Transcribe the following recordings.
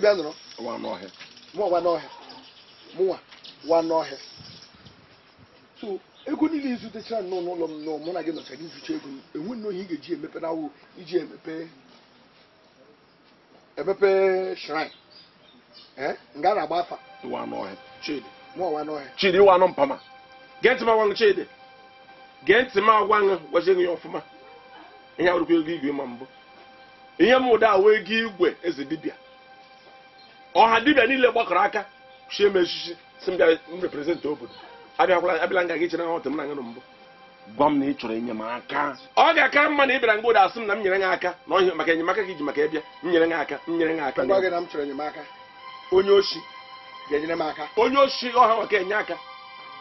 dibịa nụrụ mụwa wa n'ọhịa mụwa wa n'ọhịa so ego niile izutechara nnọọ n'ụlọ m nọọ mụ na gị nọchara izucha ego m enwe nnọọ ihe ị ga-eji emepe na iji emepe emepe shrine nga na-agba afa wa n'ọhịa chidi mụwa wa chidi wa nọ mpama gee ntị m chidi gee ntị m agwa gị gwazie ya ọfụma ihe awụrụkwa ego igwe ma mbụ ihe m ụda awụ ego igwe eze dibịa ọha dibịa niile gbakọrọ aka chi m echichi si m bịa m reprezentị obodo abịakwala abịala nga gị chere na ọtụ m na ngana mbụ gwa m na ị chọrọ enyemaka ọ ga-aka mma na ị bịara ngode asị m na m nyere gị aka na ọhịa maka enyemaka gị ji maka ịbịa m nyere gị aka m nyere gị aka gwa gị na m chọrọ enyemaka onye oshi ga-enyere m aka onye oshi ọha maka enye aka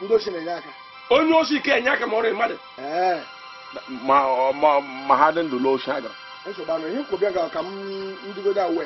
ndị oshi na-enye aka onye oshi ka enye aka ma ọrụ mmadụ ma ha dị ndụ n'oshi agara nsogbu anụ ihe nkwụbịa ga ka m ndịgode awe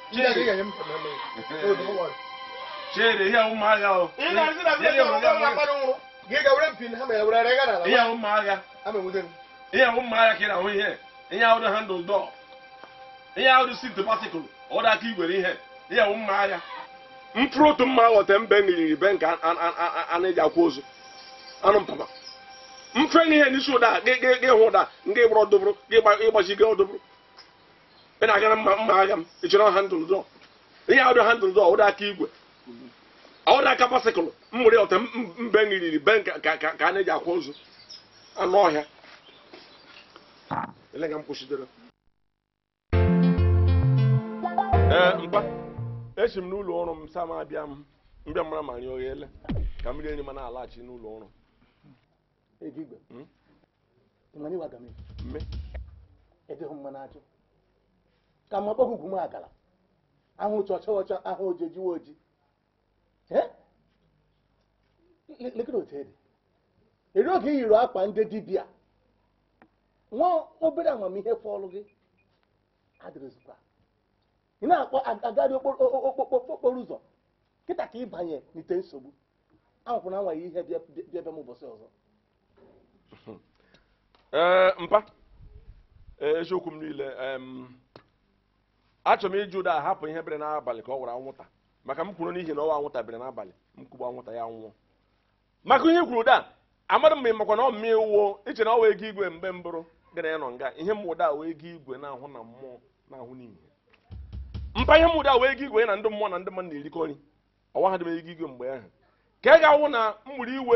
Chere ihe ụmụahịa o. Ihe Ihe ka ị na-ahụ ihe. Ihe ahụ dị handụl dọọ. Ihe ahụ dị ahụ patikụl. aka igwere ihe. Ihe agha Mkpụrụ otu mma ahụ mbe meriri be nke a ahụ ozu. Anụ mpapa. Mfe n'ihe n'isi ụda gị hụ ụda nke gbọrọ gị gị ọdụbụrụ. ị na-agara mma mma agha m ha handụl dọ ihe ahụ dị handụl dọ ọwụda aka igwe ọwụda aka basikụl m were ọta mbe nriri be ka ka a na-eji akwa ozu anụ ọhịa ee mkpa esi m n'ụlọ ọrụ m sam abịa m mbịa ma rịọ ka m rie nri ma na-alaghachi n'ụlọ ọrụ ebe ka mma akpọghị ugwu m agara ahụ ụcha ọcha ọcha ahụ oji ejiwe oji lekere otu ede eri oge i yiri akpa ndị dibịa nwa obere amamihe fọlụ gị adịrịzikwa ị na-akpọ agarị okporo ụzọ kịta ka ịbanye n'ite nsogbu na anwaghị ihe bịa bịa m ụbọchị ọzọ eh, mpa eh, eziokwu m niile achọrọ m iji ụda hapụ ihe bere n'abalị ka ọ wara anwụnta maka m kwuru n'ihi na ọwa anwụnta bere n'abalị m kwugbu anwụnta ya nwụọ maka ihe kwuru ụda amadụ mgbe makwa na ọ mmee wuo iche na ọ wee ego igwe mgbe mbụrụ gara ya nọ nga ihe mụda wee ego igwe na-ahụ na mmụọ na-ahụ n'ihe mpa ihe mụda wee ego igwe na ndị mmụọ na ndị mmadụ na-erikọ nri ọwa ha dị m ego igwe mgbe ahụ ka ị ga-awụ na mgburi iwe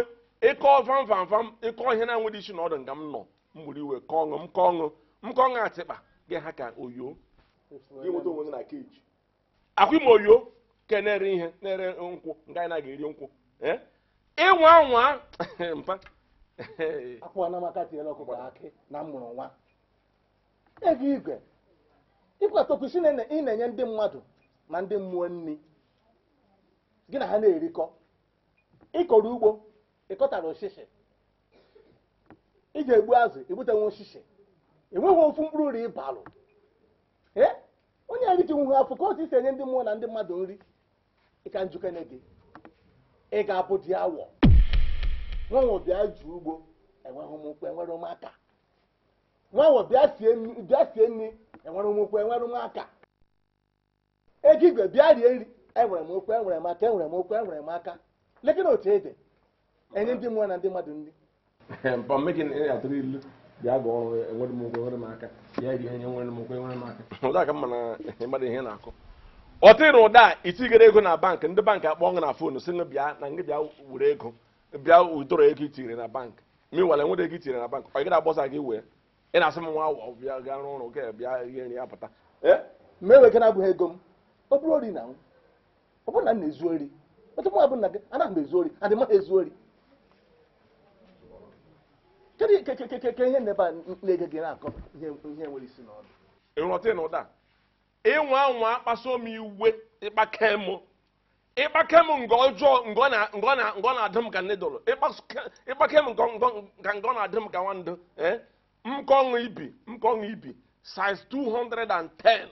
ịkọ vam vam vam ịkọ ihe na-enweghị isi na ọdụ nga m nọ mgburi iwe kọọ ọṅụ m kọọ ọṅụ m kọọ ọṅụ atịkpa gị ha ka oyo inweta onwe gị na keji akwa ime oyo ke na-ere ihe na-ere nkwụ nke anyị na eri nkwụ e? ịnwa nwa mpa akwụwa na amaka tinyere ọkụkọ akị na mụrụ nwa ego igwe ịkwatọkwụsị ị na-enye ndị mmadụ na ndị mmụọ nri gị na ha na-erikọ ịkọrọ ugbo ịkọtara osisi ị ga-egbu azụ egbutenwe osisi enweghị ofu mkpụrụ ri ịbalụ ee onye nri rijiwu ha afọ ka otu isi enye ndị mmụọ na ndị mmadụ nri ịka njukene gị ị ga-abụ di awọ nwanwe bịa ju ugbo enweghị ụmụkwụ enwere ụmụaka nwanwe bịa sie nri enwere ụmụkwụ enwere ụmụaka ego igwe bịa rie nri enwere m okwu enwere m aka enwere m okwu enwere m aka lekịna otu ede enye ndị mmụọ na ndị mmadụ nri bịa ga ọrụ enwere m ụgwọ enwere m aka bịa iri ihe enwere m ụgwọ enwere m aka ụda ka mma na ịmara ihe na-akụ ọ ụda itigere ego na bankị ndị bankị akpọ gị na foonu si bịa na ngị bịa were ego bịa udoro ego na bankị ma ịwere ego itinyere na bankị ọ gị gị wee ị na-asị m nwa bịa gaa rụọ ọrụ gị bịa ihe nri ya pụta abụghị ego m ọ bụrụ na ọ bụrụ na m na-ezu ori m na ezu ori kedu ihe nebe na-ege gị na-akọ ihe nwere isi n'ọnụ ịghọta na ụda ịnwa anwa akpaso m iwe ịkpake m ịkpake m nke ọjọọ ngọ na-adị m ka nne dọrọ ịkpake m ka ngọ na-adị m ka nwandụ e? mkọṅụ ibi mkọṅụ ibi size 210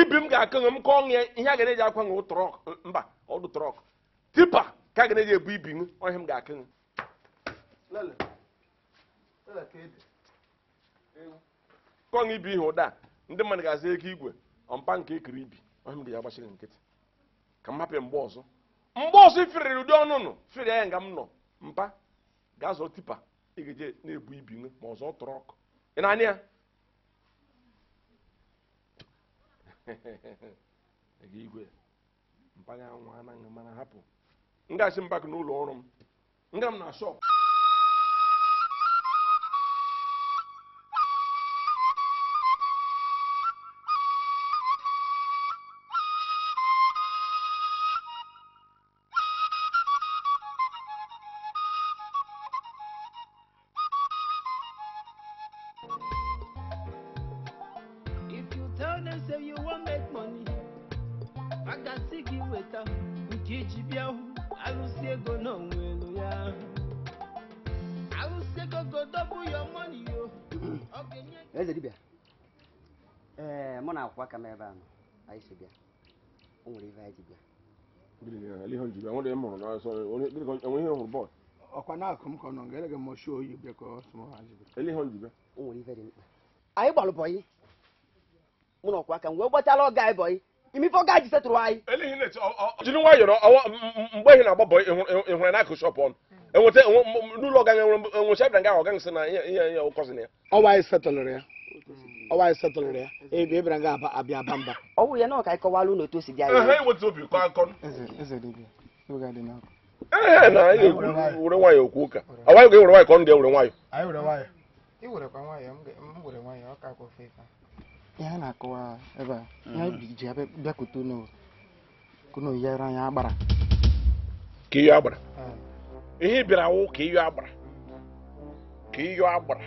ibi m ga-akọṅụ m ya ihe a ga-eji na akwanụ trọk mba ọdụ trọk tipa ka a ga-eji na ebu ibi m ọhịa m ga-akọṅụ kọnụ ibi ihe ụda ndị mmadụ ga azị eke igwe ọmpa nke ekiri ibi ọhịa m ya gbachiri nkịtị ka m hapụ mgbe ọzọ mgbe ọzọ ifiriri ụdị ọnụnụ firi ya nga m nọ mpa gaa zọrọ tipa ị na-ebu ibi nwe ma ọzọ tụrụ ọkụ ị na ya igwe ọrụ m nga m na shọpụ kamera anyị si bịa o nwere ife anyị ji bịa ọkwa na-akụ m ka ọ nọ ga-ele gị oyi bịa ka ọ sụmọ ha ji bịa o nwere na m anyị mgbe ihe na-agba bọyị e e n'akụ shọpụ ọnụ enweta e n'ụlọ ọga nwere nwụchi abịa nga ọga nsị na ihe na anyị ya ọwa setụlụrụ ya ebe ebere nga abịa aba mba ọ wụrụ ya na ọka ịkọwala ụlọ otu o si dị anya ee na anyị were nwayọ okwu ụka awaghị ga-ewere nwayọ ka ọ ndị ewere nwayọ ihe a na-akọwa ebe a mm. ihe ji bịakwute n'oyi yere anya agbara ka iyo agbara ihe bịara wụ ka iyo agbara ka iyo agbara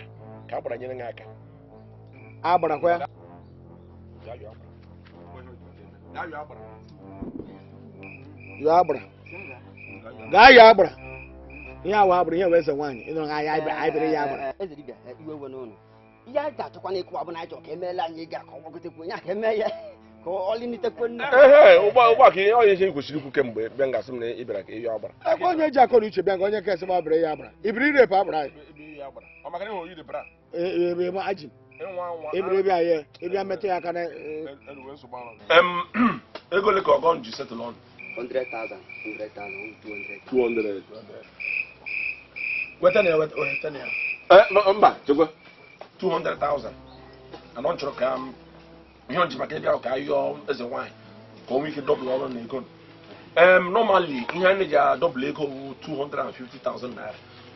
ka agbara nyere gị aka agbara ah, agbarakwa ya yọọ agbara gaa yọọ agbara ihe awa agbara ihe wee ze nwaanyị ịnọrọ ahịa aịbịrị ya agbara ihe a ga-achọkwa n'ịkụwa bụ na achọ ka emeela anyị ga ka ọ gbagọtekwu onye a ka eme ya ka ọlịnitekwu nne ụgbọ ka ihe onye ihe kwesịrị ikwu kemgbe bịa ngasị m na ị ka ihe agbara ebe onye ji akọ na uche bịa ka onye kesị m abịrị ya agbara ibiri irepụ agbara anyị Ee, ebe ebere bi ayɛ ebi amɛtɛ aka na. ego le ka ɔgɔn ju settle on. hundred thousand two hundred. two hundred. wɛtɛ ni ya wɛtɛ ni ya. ɛ eh, mba jogo. two hundred thousand anɔ n tɔrɔ ka yɔn jiba kɛ bi a ka yɔ ɛsɛ wine ka o mi kɛ dɔbili ɔlɔ ni ego. normally n yɛn ne ja dɔbili ego two hundred and fifty thousand naira.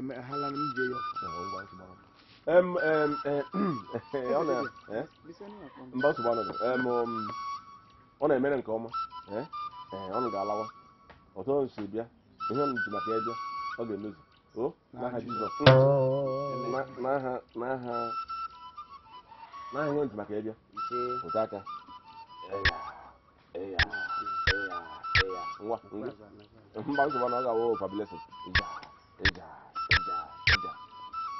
mba nsogbu anọdụ um, ọ na-emere nke ọma ọ ga-alawa ọtọ nso bịa ihe ọnụ ji maka ya e ọ ga-emezu o n'aha jizọs n'aha n'aha n'aha ihe ji maka ya e bịa aka nwa mba nsogbu na ọ ga-awụ ịja ịja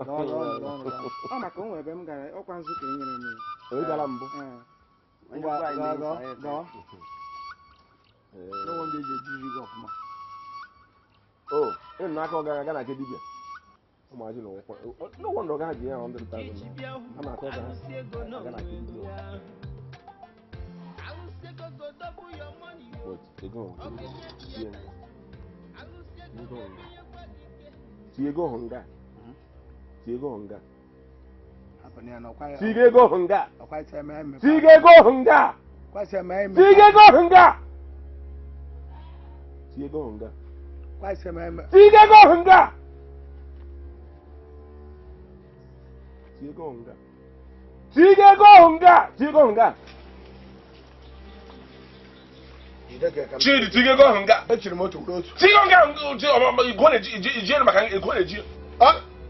ọ maka o ebe m gara ọkwa nzukọ e nyere m ịnụ e e n'aka ọgara ga na nke dibia ụmụazị na ya a ego nga tiga ego nga tiga ego nga tiga ego nga tiga ego nga tiga ego nga tiga ego nga tiga ego nga tiga ego nga chidi tiga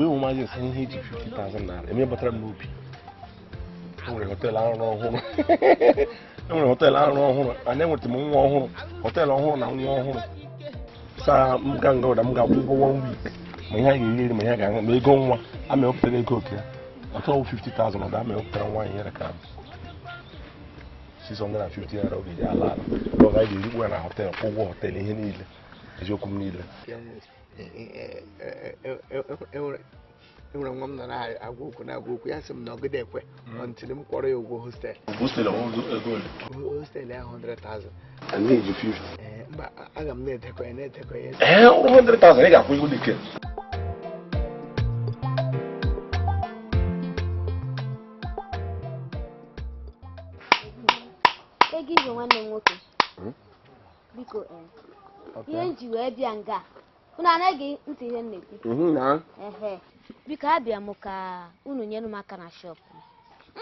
imagine saying he did 50,000 naira. I mean, but I'm movie. I'm going to tell her, I don't know. enwere họteelụ arụrụ ọhụrụ anyị enweta m nwa ọhụrụ họteelụ ọhụrụ na nwa ọhụrụ saa m ga nga ụda m ga-akwụ ụgwọ one week ma ihe a ga-eri ma ihe a ga-aṅụ ma ego nwa amewepụtara ego oke ya ọtọwụ 50,000 ụda amewepụtara nwa anyị nyere ka 650 naira oge ji ala ala ọ gaghị erikwu ya na họteelụ kwụ ụgwọ họteelụ ihe niile eziokwu m niile enwere nwa m nọ na-agwa okwu na-agwa okwu ya sị m na ọgide ekwe mm. ntili m kwọrọ ya ụgwọ hostelụ hostel ya 100,000 mba aga m na-edekọ ya na-edekọ ya ee 100,000 ị ga-akwụ iwu dike ego ibe nwanne m nwoke hmm? biko ihe m ji wee bịa nga unu anaghị ntị ihe nna ekwu mhm, biko abịa m ka unu nyere m aka na shọp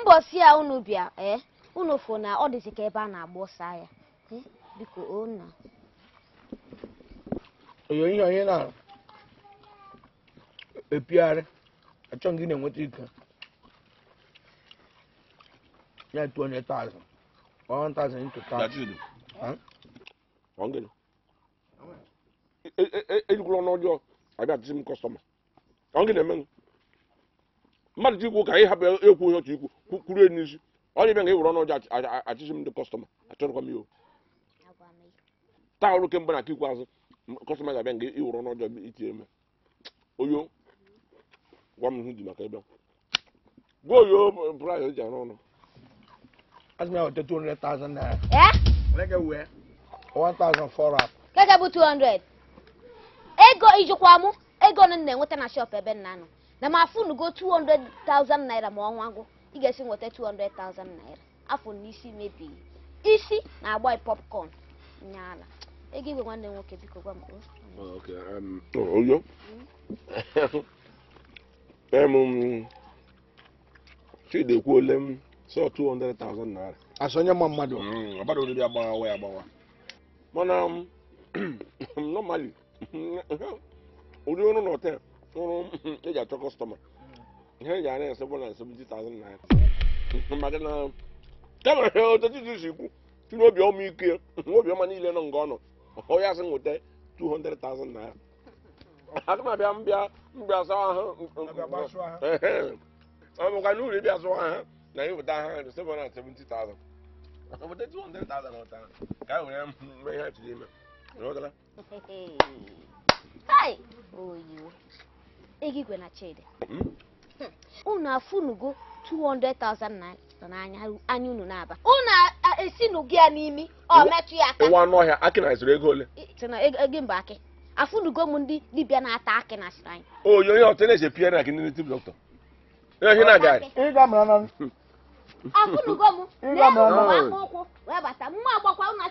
mbọsi a unu bịa ee eh? unu fụ na ọ dịzi ka ebe a na-agba ọsọ ya eh? biko onna oyo onye na-epigharị achọ gị na-enweta ike ya tuo eyikwuru e, e, e, ọnụ ọjọọ abịa dịzi m kọstọma ọ gị na-eme mmadụ ji ikwu ka anyị hapụ ekwu onye ọchị ikwu kwuru enyi n'isi ọ dị ebe nga ọnụ ọjọọ achịzi m ndị kọstọma achọrọkwa m taa ọrụ kemgbe na ikwu azụ kọstọma ga-abịa nga iwere ọnụ ọjọọ itinye oyo gwa m dị maka ebe gwa oyo eji arụ Yeah? a 1,400. ego ijikwa mụ ego na na-enweta na shop ebe nna nọ na m afụnugo 200,000 naira ma ọnwa gwụ ị ga-esi nweta 200,000 naira afọ n'isi isi mebighị isi na-agba popcorn nyaala ego igwe nwanne m nwoke biko gwa m oyo chidi ekwuole m sọ 200,000 naira asonye ma mmadụ mm, ọbara oriri agbawa ya agbawa mana um, normally ụdị ọrụ na ọrụ eji achọ kọstọma ihe eji ara ese bụla seventy thousand maka na kama otu titi si kwu tinye obi ọma ike obi ọma niile nọ nga ọ nọ onye asị nweta 200,000 naira aga m abịa mbịa mbịa sawa ha ịbịa sawa ha na ha 200,000 ọta ka were ihe ime Rọgala. Hai! Oyo. na Chidi. Mm-hmm. Hmm. Unu afụnugo 200,000 na n'anya anya unu na-aba. esi esinụgo a n'imi ọ metu ya aka. Nwa anụ ọhịa akị na ezuru ego ole? Ego mba akị. Afunugo ndị dibia na-ata akị na asịrị anyị. Oyo onye otu na na gị ndị dọkịta. Ihe na-agagharị. Ị ga-amara na hmm. afụnugo m agbakwa na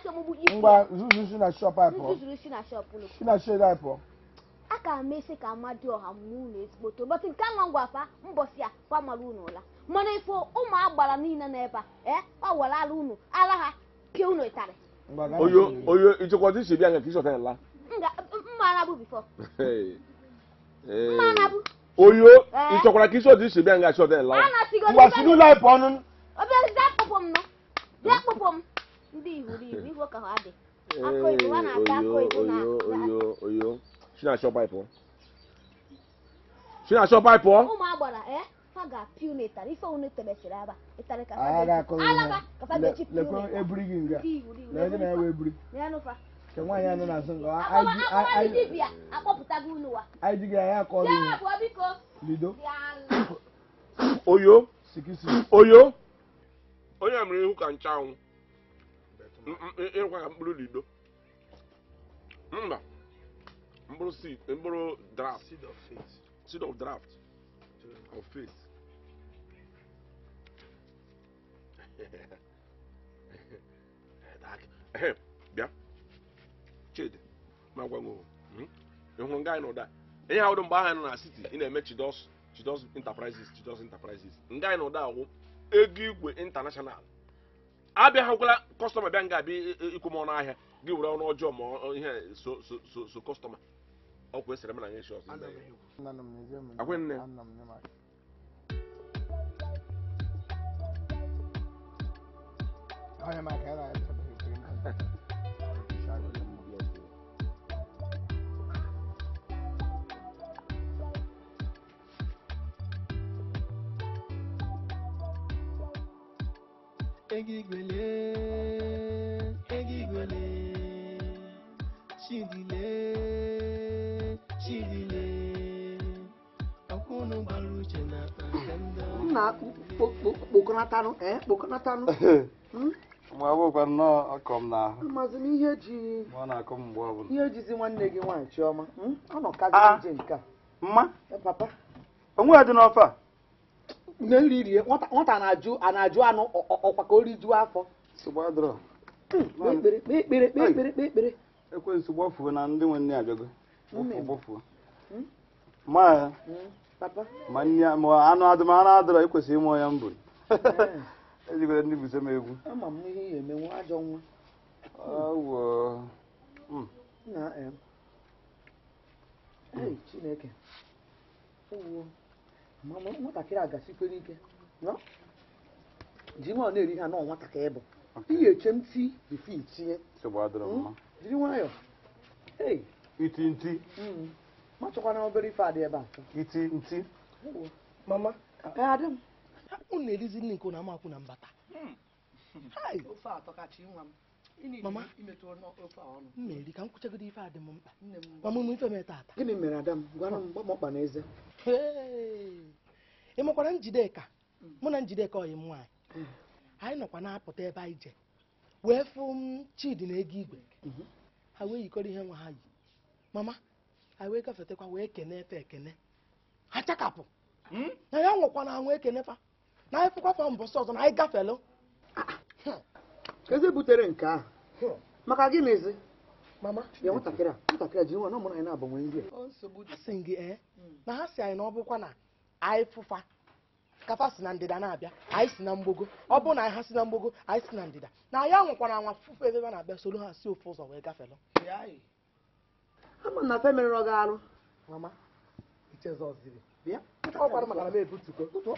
aka m esi ka dị ọha mụ na ezigbo tobọtị nke nwa ngwafa mbọsị a kwamara unu ụla mana ifo ụmụ agbara niile na ebe a eh, ọ ala unu ala ha unu ịtarị oyo iche bịa nke ịchọta ịla bifo oyo ịchọkwara eh. ka iche bịa ịla obere zakpụpụ m nọ zakpụpụ m ndị ihuru ihu ihu ka ha dị akụ na ụmụ agbara eh, ha ga-apị unu ịtara ife unu tebesịrị aba ịtara ka ha ga-echi pị unu eburi gị nga na ebe nke nwaanyị anọ n'azụ akpọpụtago unu wa anyị ji gị anya akọ lido oyo oyo onye mere ihu ka nchanwụ ịrụkwa ka mkpụrụ lido mba mkpụrụ seed mkpụrụ draft seed of faith seed of draft of faith bịa chidi ma gwa m hmm? ịhụrụ nga anyị n'ụda ihe ahụ dị mgbe ahụ nọ na city ị na-eme chidos chidos enterprises chidos enterprises nga anyị n'ụda agwụ ego igwe intanashonal abịaghịkwala kọstọma bịa nga abịa ikwu m ọnụ ahịa gị were ọnụ ọjọọ ma ihe so kọstọma ọkwa esere m na ya echi ọzọ akwenne Egigwele, egigwele, chidile, chidile. Nna kpokọnatanụ ee kpokọnatanụ. Hmm? Ma ọ bụkwa nnọọ ọkọ m na ihe ji. Ma ọ na-akụ m mgbe ọbụla. Ihe jizi nwanne gị nwaanyị Chiọma. Hmm? Ọ nọ kazi ije ah, nke a. Mma. Papa. Onwe ya dị n'ọfọ a. nne nri rie nwata na-ajụ a na-ajụ anụ ọkwa ka o rijuo afọ hmm, ekpere ekwensu gbafuo na ndị nwe nne abịago gbafuo hmm? Hmm, ma ma ma anụ adụm anụ adọrọ ekwesịghị ịmụọ ya mbụ eh. ejigoro ndị buso m egwu ama m nwatakịrị a gasikwere ike ji nwa na-eri ha nọ nwatakịrị bụ ihe eche ntị bifi tinye hmm? jiri nwayọọ iti nti hmm. ma chọkwana obere ife adị ebe a iti nti mama unu erizi nri nke na amakwụ na mbata hmm. mama mmeri ka m kwụchagodo ife adị m mkpa mama m ife m tata gịnị mere Adam gwara m gbamọkpa n'eze? eze ị makwara njideka mụ na njideka ọyị m nwaanyị anyị nọkwa na-apụta ebe anyị je wee fụ m chidi na ego igwe mhm. ha wee yikọrọ ihe nwa ha yi mama ha wee gafetekwa wee kene efe ekene ha chakapụ hmm? na ya nwụkwa na anwụ ekenefa na anyị fụkwa fa mbọsị ọzọ na anyị gafelụ eze butere nke ahụ maka gịnịzi mama ya nwatakịrị a nwatakịrị a jiri nwa na ụmụ anyị na-abanwe nri a nsogbu si gị ee na ha si anyị na ọ bụkwa na anyị fụfa kafa si na ndịda na-abịa anyị si na mgbogo ọ bụ na anyị ha si na mgbogo anyị si na ndịda na anyị anwụkwara anwa fụfụ ebe ha na-abịa soro ha si ofu ụzọ wee gafelụ ama na femerere ọ ga-arụ mama ichezọziri bịa ọ gwara maka na m ebutuko.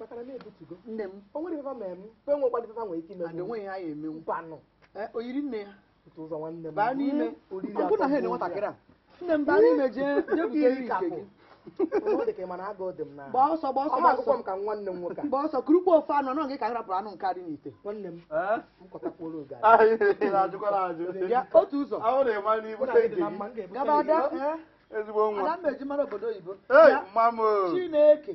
maka na na-ebutugo nne m o nwere ifefa ma eme mpe nwe ụkwadị ifefa nwere ike ime adị ah, nweghị anyị emenwu mpanụ eh, oyiri nne ya otu ụzọ nwanne m baa n'ime oriri atọ na ha nwatakịrị a nne m baa n'ime jee jebute iri nke gị gbaa ọsọ gbaa ọsọ gbaa ọsọ ka nwanne m nwoke gbaa ọsọ kurukpu ofe anụ anụ gị ka rapụrụ anụ nke adị n'ite nwanne m eh? ah, otu ụzọ gaba ada eh? ada mmeji mara obodo oyibo chineke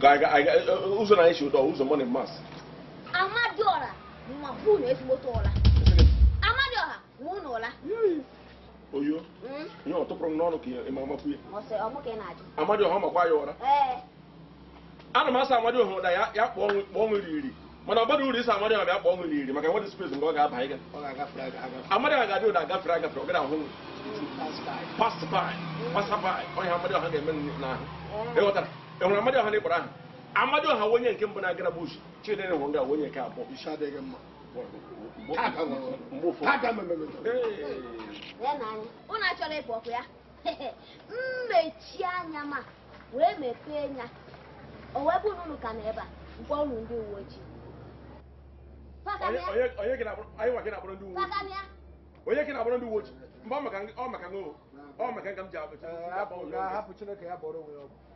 ụzọ na-echi ụtọ ụzọ mọni mas amadioha ma ma unu ụla oyo ihe ọ tụpụrụ m n'ọnụ ka ịma amakwu ya amadioha makwa ya ụra ana m asa amadioha ụda ya kpọọ ọnwụ iri mana ọ bara uru isi amadioha bịa kpọọ ọnwụ iri maka nwere spes nke ọ ga-aba ọ eme enwere amadi ọha na ịkpọrọ aha amadi ọha onye nke mbụ na-agara bụ uzu chidere nwere nga onye nke abụọ ụnụ achọrọ ịkpọ ọkụ ya mmechi anya ma wee mepee anya o wee ka na ebe a mkpọ ụnụ ndị uwe ojii onye gị na-agbara ndị uwe ojii mgbe ọ maka ọ ọ maka m ji abụ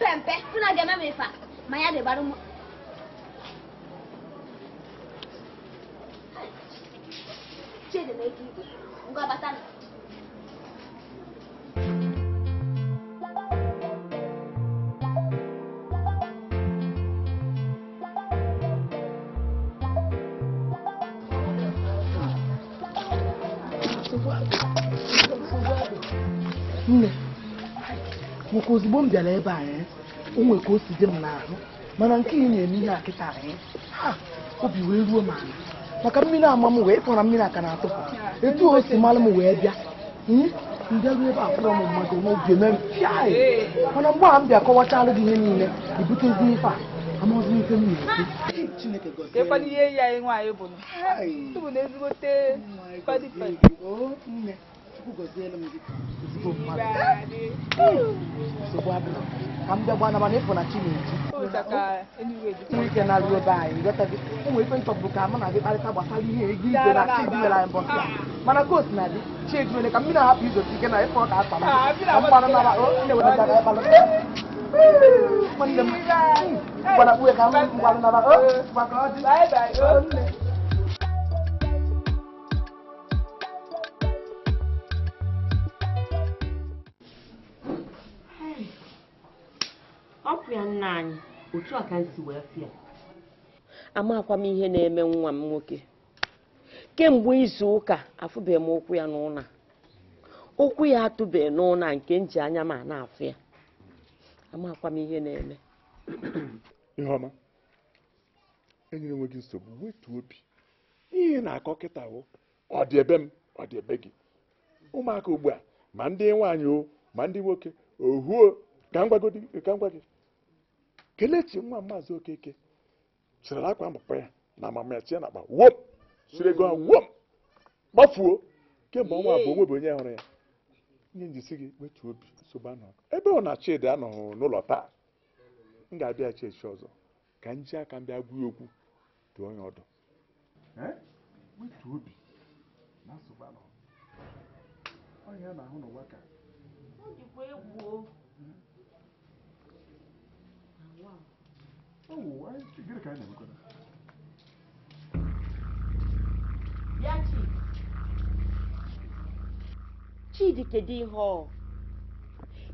mpɛmpɛ funa deɛ mɛ mefa ma ya de ba mu. Chidi na eke igwe, ngwa bata na. maka ozugbo m bịara ebe anyị onwe ka o si dị m n'ahụ mana nke ị na-eme ihe akịta anyị ha obi wee ruo m ala maka mmiri ama m wee fọrọ mmiri aka na-atụpụ etu o si mara m wee bịa mbịaruo ebe akpọrọ m mmadụ n'oge mere piaị mana mgbe a m bịa kọwachalụ gị ihe niile ibutezi ife a amaghị m m na-ekwu ihe ya anyị nwaanyị bụ na ezigbote Bye. m gị ọkụ ya nna anyị otu a ka m si wee fịa amakwa m ihe na-eme nwa m nwoke kemgbe izu ụka afụbeghị m ụkwụ ya n'ụna ụkwụ ya atụbeghị n'ụna nke nji anya ma na-afụ ya amakwa m ihe na-eme iheọma enyere nwe gị nsogbu wetu obi ihe na-akọ kịta hụ ọ dị ebe m ọ dị ebe gị ụmụaka ugbu a ma ndị nwaanyị o ma ndị nwoke ohuo ka m gwa gị kelechi nwa maazị okeke sirila akwa mkpa ya na amama ya tinye na akpa wom siri ego ahụ wom gbafuo kemgbe ọnwa abụọ onwebe onye hụrụ ya nye njisi gị wetu obi nsogbu anọ ebe ọ na chidi anọghị n'ụlọ taa m ga-abịa chechi ọzọ ka m ji aka m bịa gwa okwu dụọ onye ọdụ wetu obi na nsogbu anọ ọhịa na-ahụ n'ụwa ka Bịa oh, gịnị ka anyị Chidi Chidi kedu ihe ọ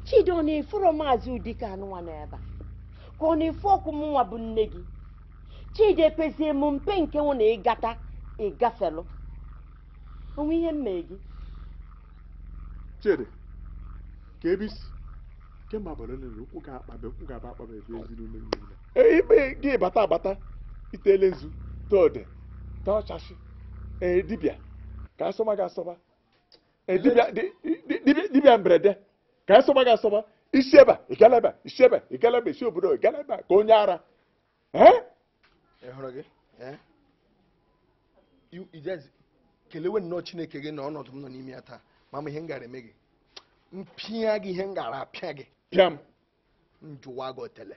Chidi ọ na-efuro maazị Udika anụnwa n'ebe a ka ọ na-efu ọkụ m nwa bụ nne gị Chidi ekpezie m mpe nke nwụ na ịgata ịgafelụ onwe ihe mmee gị Chidi ka ebe isi kemgbe abalị niile ụkwụ ga-akpabe ụkwụ ga-aba akpabe ebe eziri ume mmiri ikpe gị bata abata itele nzu tode tọchasị e, dibịa ka asọba gị asọba e, dibịa mberede ka asọba gị asọba isi ebe ịgala ebe isi ebe ịgala ebe isi obodo ịgala ebe ka onye ara e? kelewe nnọọ chineke gị na ọnọdụ m nọ n'ime ya taa mama ihe m eme gị mpịa gị ihe m gara apịa gị pịa m njụwa gị otele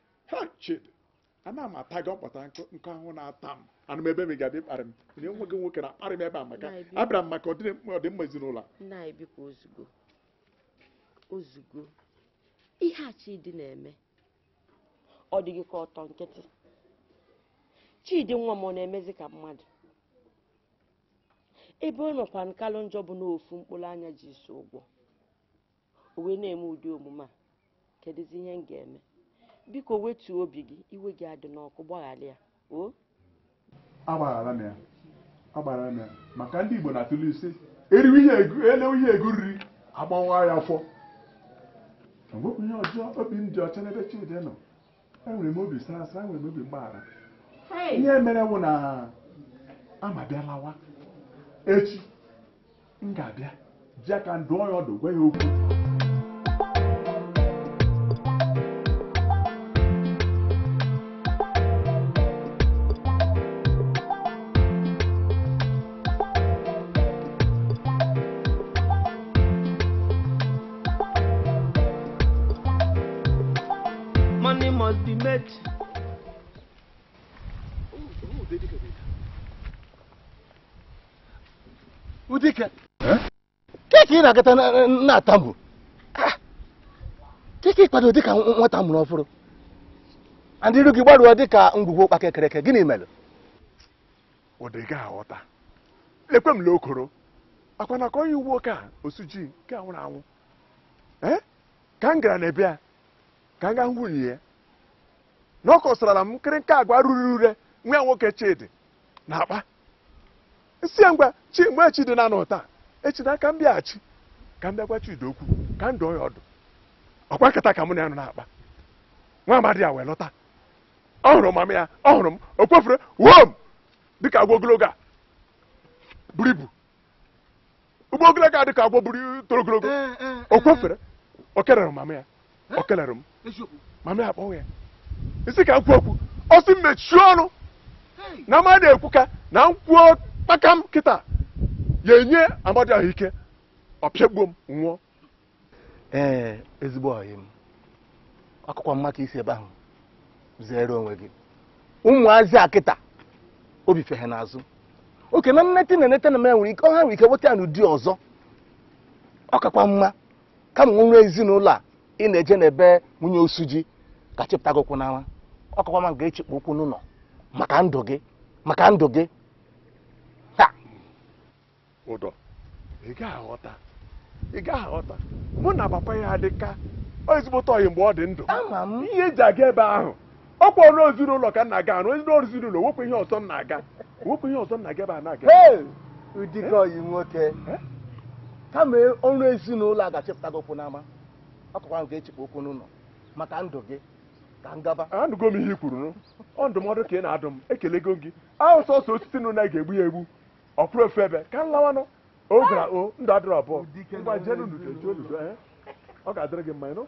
chid ana m ata gị ọkpọta nkụ ahụ na-ata m anụ m ebe m ga-adị kparị m nye nwa gị nwoke na-akparị m ebe a maka abịara m maka ọdịmma ezinụlọ ozugbo ozugbo ihe a chidi na-eme ọ dịghị ka ọtọ nkịtị chidi nwa m ọ na-emezi ka mmadụ ebe ọ nọkwa nkalụ njọ bụ n'ofu mkpụrụ anya ji so ụgwọ o wee na-eme ụdị omume a kedụzi ihe m ga-eme biko wetuo obi gị iwe gị adị n'ọkụ gbaghara ya o agbaghara m ya agbaghara m ya maka ndị Igbo na-atụlụ isi eriwe ihe elewe ihe ego riri agbawa ya afọ enwekwa ihe ọjọọ obi m dị ọcha n'ebe Chidi nọ enwere m obi sara enwere m obi mgbaghara ihe mere wụ na amabịalawa echi m ga-abịa ji aka ndụọ ya ọdụ gwa ya okwu ị na-agata na-atamu ah, keke ịkwado dịka nwata mụrụ ọfụrụ ndị iru gị dị dịka ngwugwu ụkpa eke gịnị mere ọ dị gị aghọta ekwe m okoro akwa na ka onye uwe oke a osuji nke anwụrụ anwụ eh? ka m gara na ebe a ka m gaa nwunye ya na ọ kọsara m nkịrịnka agwa ruru ure nwa nwoke chidi na akpa si ya ngwa chi mgbe chidi na anọ ụta, echi na aka m bịaghachi ka m bịakwa Chidi okwu ka m dụọ ya ọdụ ọkwa nkata ka mụ na ya nọ na-akpa nwa amadi a wee lọta ọ hụrụ mama ya ọ hụrụ m o wom dịka agwa ogologo a buru ibu ụgbọ ogologo a dịka agwọ buru toro ogologo eh, eh, eh, o kwefere o kelere mama ya o kelere m mama ya akpọghị ya isi ka m kwuo okwu ọ sị mechie ọnụ na amadi na-ekwu ka na m kwuo kpaka m kịta ya enye amadi ahụike. ọpịagbuo m nwụọ ee ezigbo ọyị m akụkọ mma ka isi ebe ahụ zere onwe gị ụmụazị akịta obi fehe n'azụ oke na nnete na enete na m nwere ike ọha nwere ike nweta ya n'ụdị ọzọ ọ kakwa mma kama nwa ezinụlọ a ị na-eje n'ebe nwunye osu ji ka chịpụta gị ụkwụ n'ama ọ kakwa mma ga-echikpa ụkwụ n'ụlọ maka ndụ gị maka ndụ gị ha ụdọ ị ga-aghọta ị gaghị aghọta mụ na papa ya adịka ezigbote oyi mgbe ọ dị ndụ ihe eji aga ebe ahụ ọ kpọọ ezinụlọ ka na-aga arụ ezinụlọ wepụ ihe ọzọ na-aga wepụ ihe ọzọ na-aga ebe a na-aga ụdịka ọyị nwoke kama ọrụ ezinụlọ achịpụta gị okwu n'ama akọkwara m ga-echekwa okwu n'ụlọ maka ndụ gị ka ngaba anụgo m ihe i kwuru ọ ndụmọdụ ka ị na-adụ m ekelego gị ahụ sọsọ osisi nụ na ga-egbu ya egbu ọkpụrụ ofe ebe ka m lawanụ o gwara o ndụ adịrị abụọ ngwa jee n'ududo jee oludo ee ọ ga-adịrị gị mma ịnụ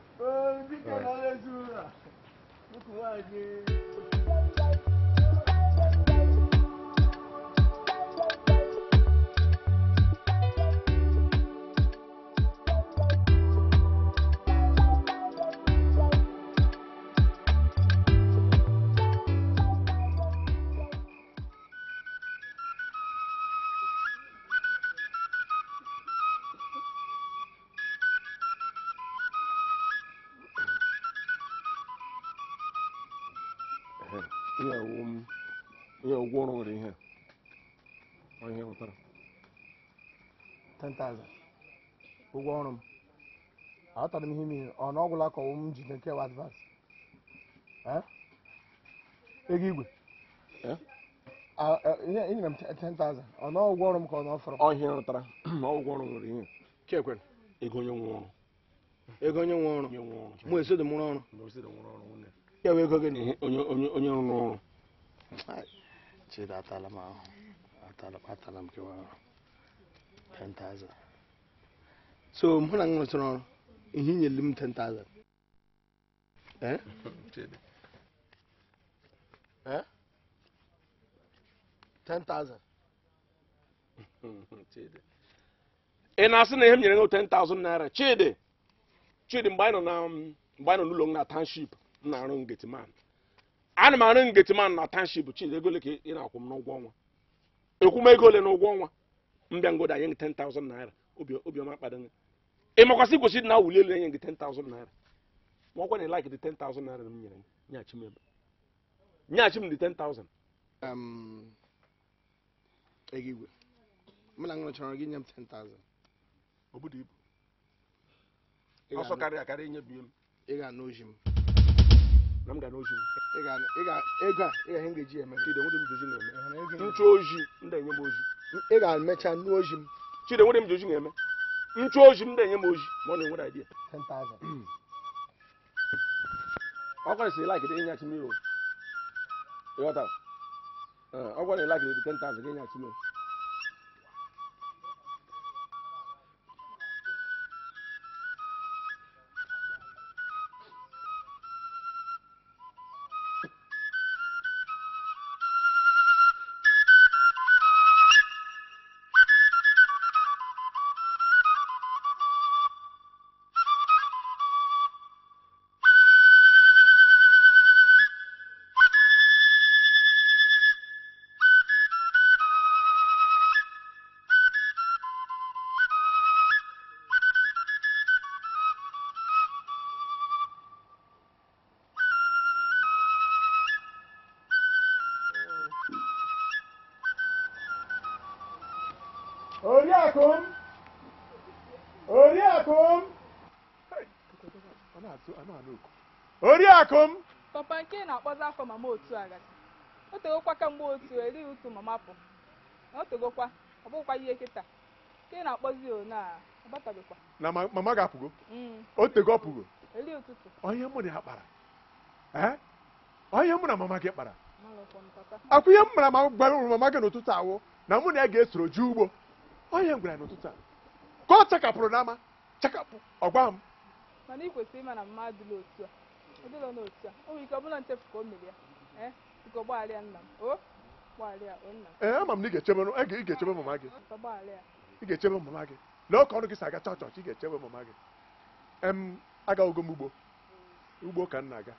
10,000 ụgwọ ọrụ m ihe m ihe ọ na m ji nke nkewa advance ego igwe enyere e, m 10,000 ọ na ụgwọ ọrụ m ka ọ na ọfọrọ rụtara na nwere ihe ego onye nwe ọrụ ego onye nwe ọrụ mụ mụrụ ọrụ ego gị na onye rụrụ ọrụ chidatala 10,000 so mụ na m ọrụ ihe nyere m 10,000 ị na-asị na ihe m nyere gị 10,000 naira chidi chidi mgbe anyị nọ n'ụlọ na m na-arụ ngetiman ana m arụ ngetiman na township chidi ego ole ka ị na-akwụ m n'ụgwọ ọnwa ekwum ego ole n'ụgwọ ọnwa mbịangodo anyị gị 10,000 naira obiọma kpado gị ị makwasị gosi na wuli elu anyị gị 10,000 naira ma ọkwa na like dị 10,000 naira m nyere nyeghachi m ebe nyeghachi m dị 10,000 ego igwe mụ na ṅụrụ gị nye m 10,000 obodo ibu ọsọ karịa akarị inyebi m ị ga-anụ oji m na m ga n'oji m ego a ihe m ga-eji eme nchụ oji ndị enye m oji ị ga-emecha nnu ozi m chide nwere m ji ozi na-eme nchu ozi m na-enye m ozi ma ọ na-enwere idea ọ gwara si like ịnyachi mmiri ọ gwara ịlakịrị 10,000 ga-enyachi akụm papa nke na-akpọzi afọ mama otu agadi o tegokwa kemgbe otu erighị otu mama pụ na o ọ bụghịkwa ihe kịta nke na-akpọzi mama mm. mụ na ya kpara onye na gị kpara akwụ ihe m mama gị n'ụtụtụ awụ na mụ na ya ga-esoro ugbo onye n'ụtụtụ a ka ọ chakapụrụ n'ama chakapụ ọgwa m nọ n'otu a o ike ọ bụla o mere ya biko gbaghara nna m o nna m ee ama m na ị ga-echebe mama gị ị ga-echebe mama gị lee ọka ọrụ gị si aga chọọ chọọchị ị ga-echebe mama gị em agaghịgo m ugbo ugbo ka m na-aga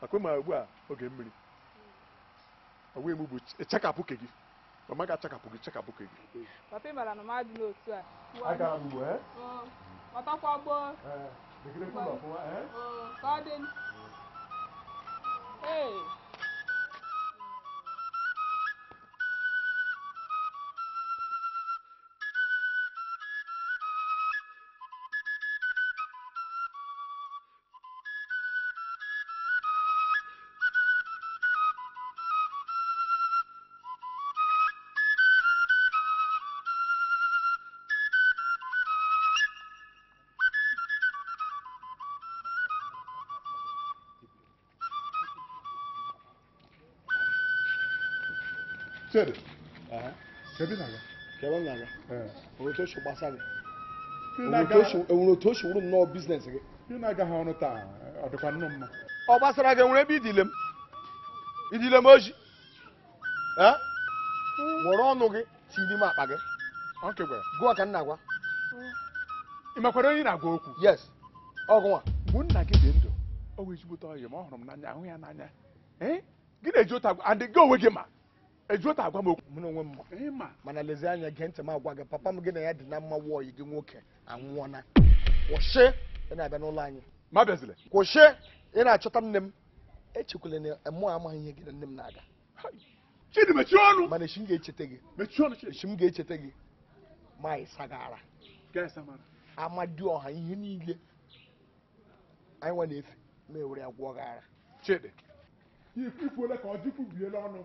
maka ugbu a oge mmiri onwe m bụ chekapụ ke gị mama ga-achakapụ gị chekapụ ke gị papa ị na m n'otu a ìkíní eh? oh, kúlọ̀ Uh-huh. Tere. gbasara gị ebe idile m. oji. gị akpa gị. Ọ na-agwa okwu? Yes. Ọgụnwa. a, gị dị ndụ, eji ụta and gị onwe gị ma. eju agwa m okwu n'onwe m ma mana lezie anya gee ntị m agwa gị papa m gị na ya dị na mma yi gị nwoke anwụọna kwụsị ị na-abịa n'ụlọ anyị ma bịazile kwụsị ị na-achọta nne m echekwala na mụ amaghị ihe gị na nne m na-aga chidi mechie ọnụ mana echi m ga-echeta gị mechie ọnụ echi m ga-echeta gị ma ịsagara amadi ọha ihe niile anyị nwa na-efe ma ewere ya gwụọ gara chidi ifu ole ka ọ dịkwubiela ọnụ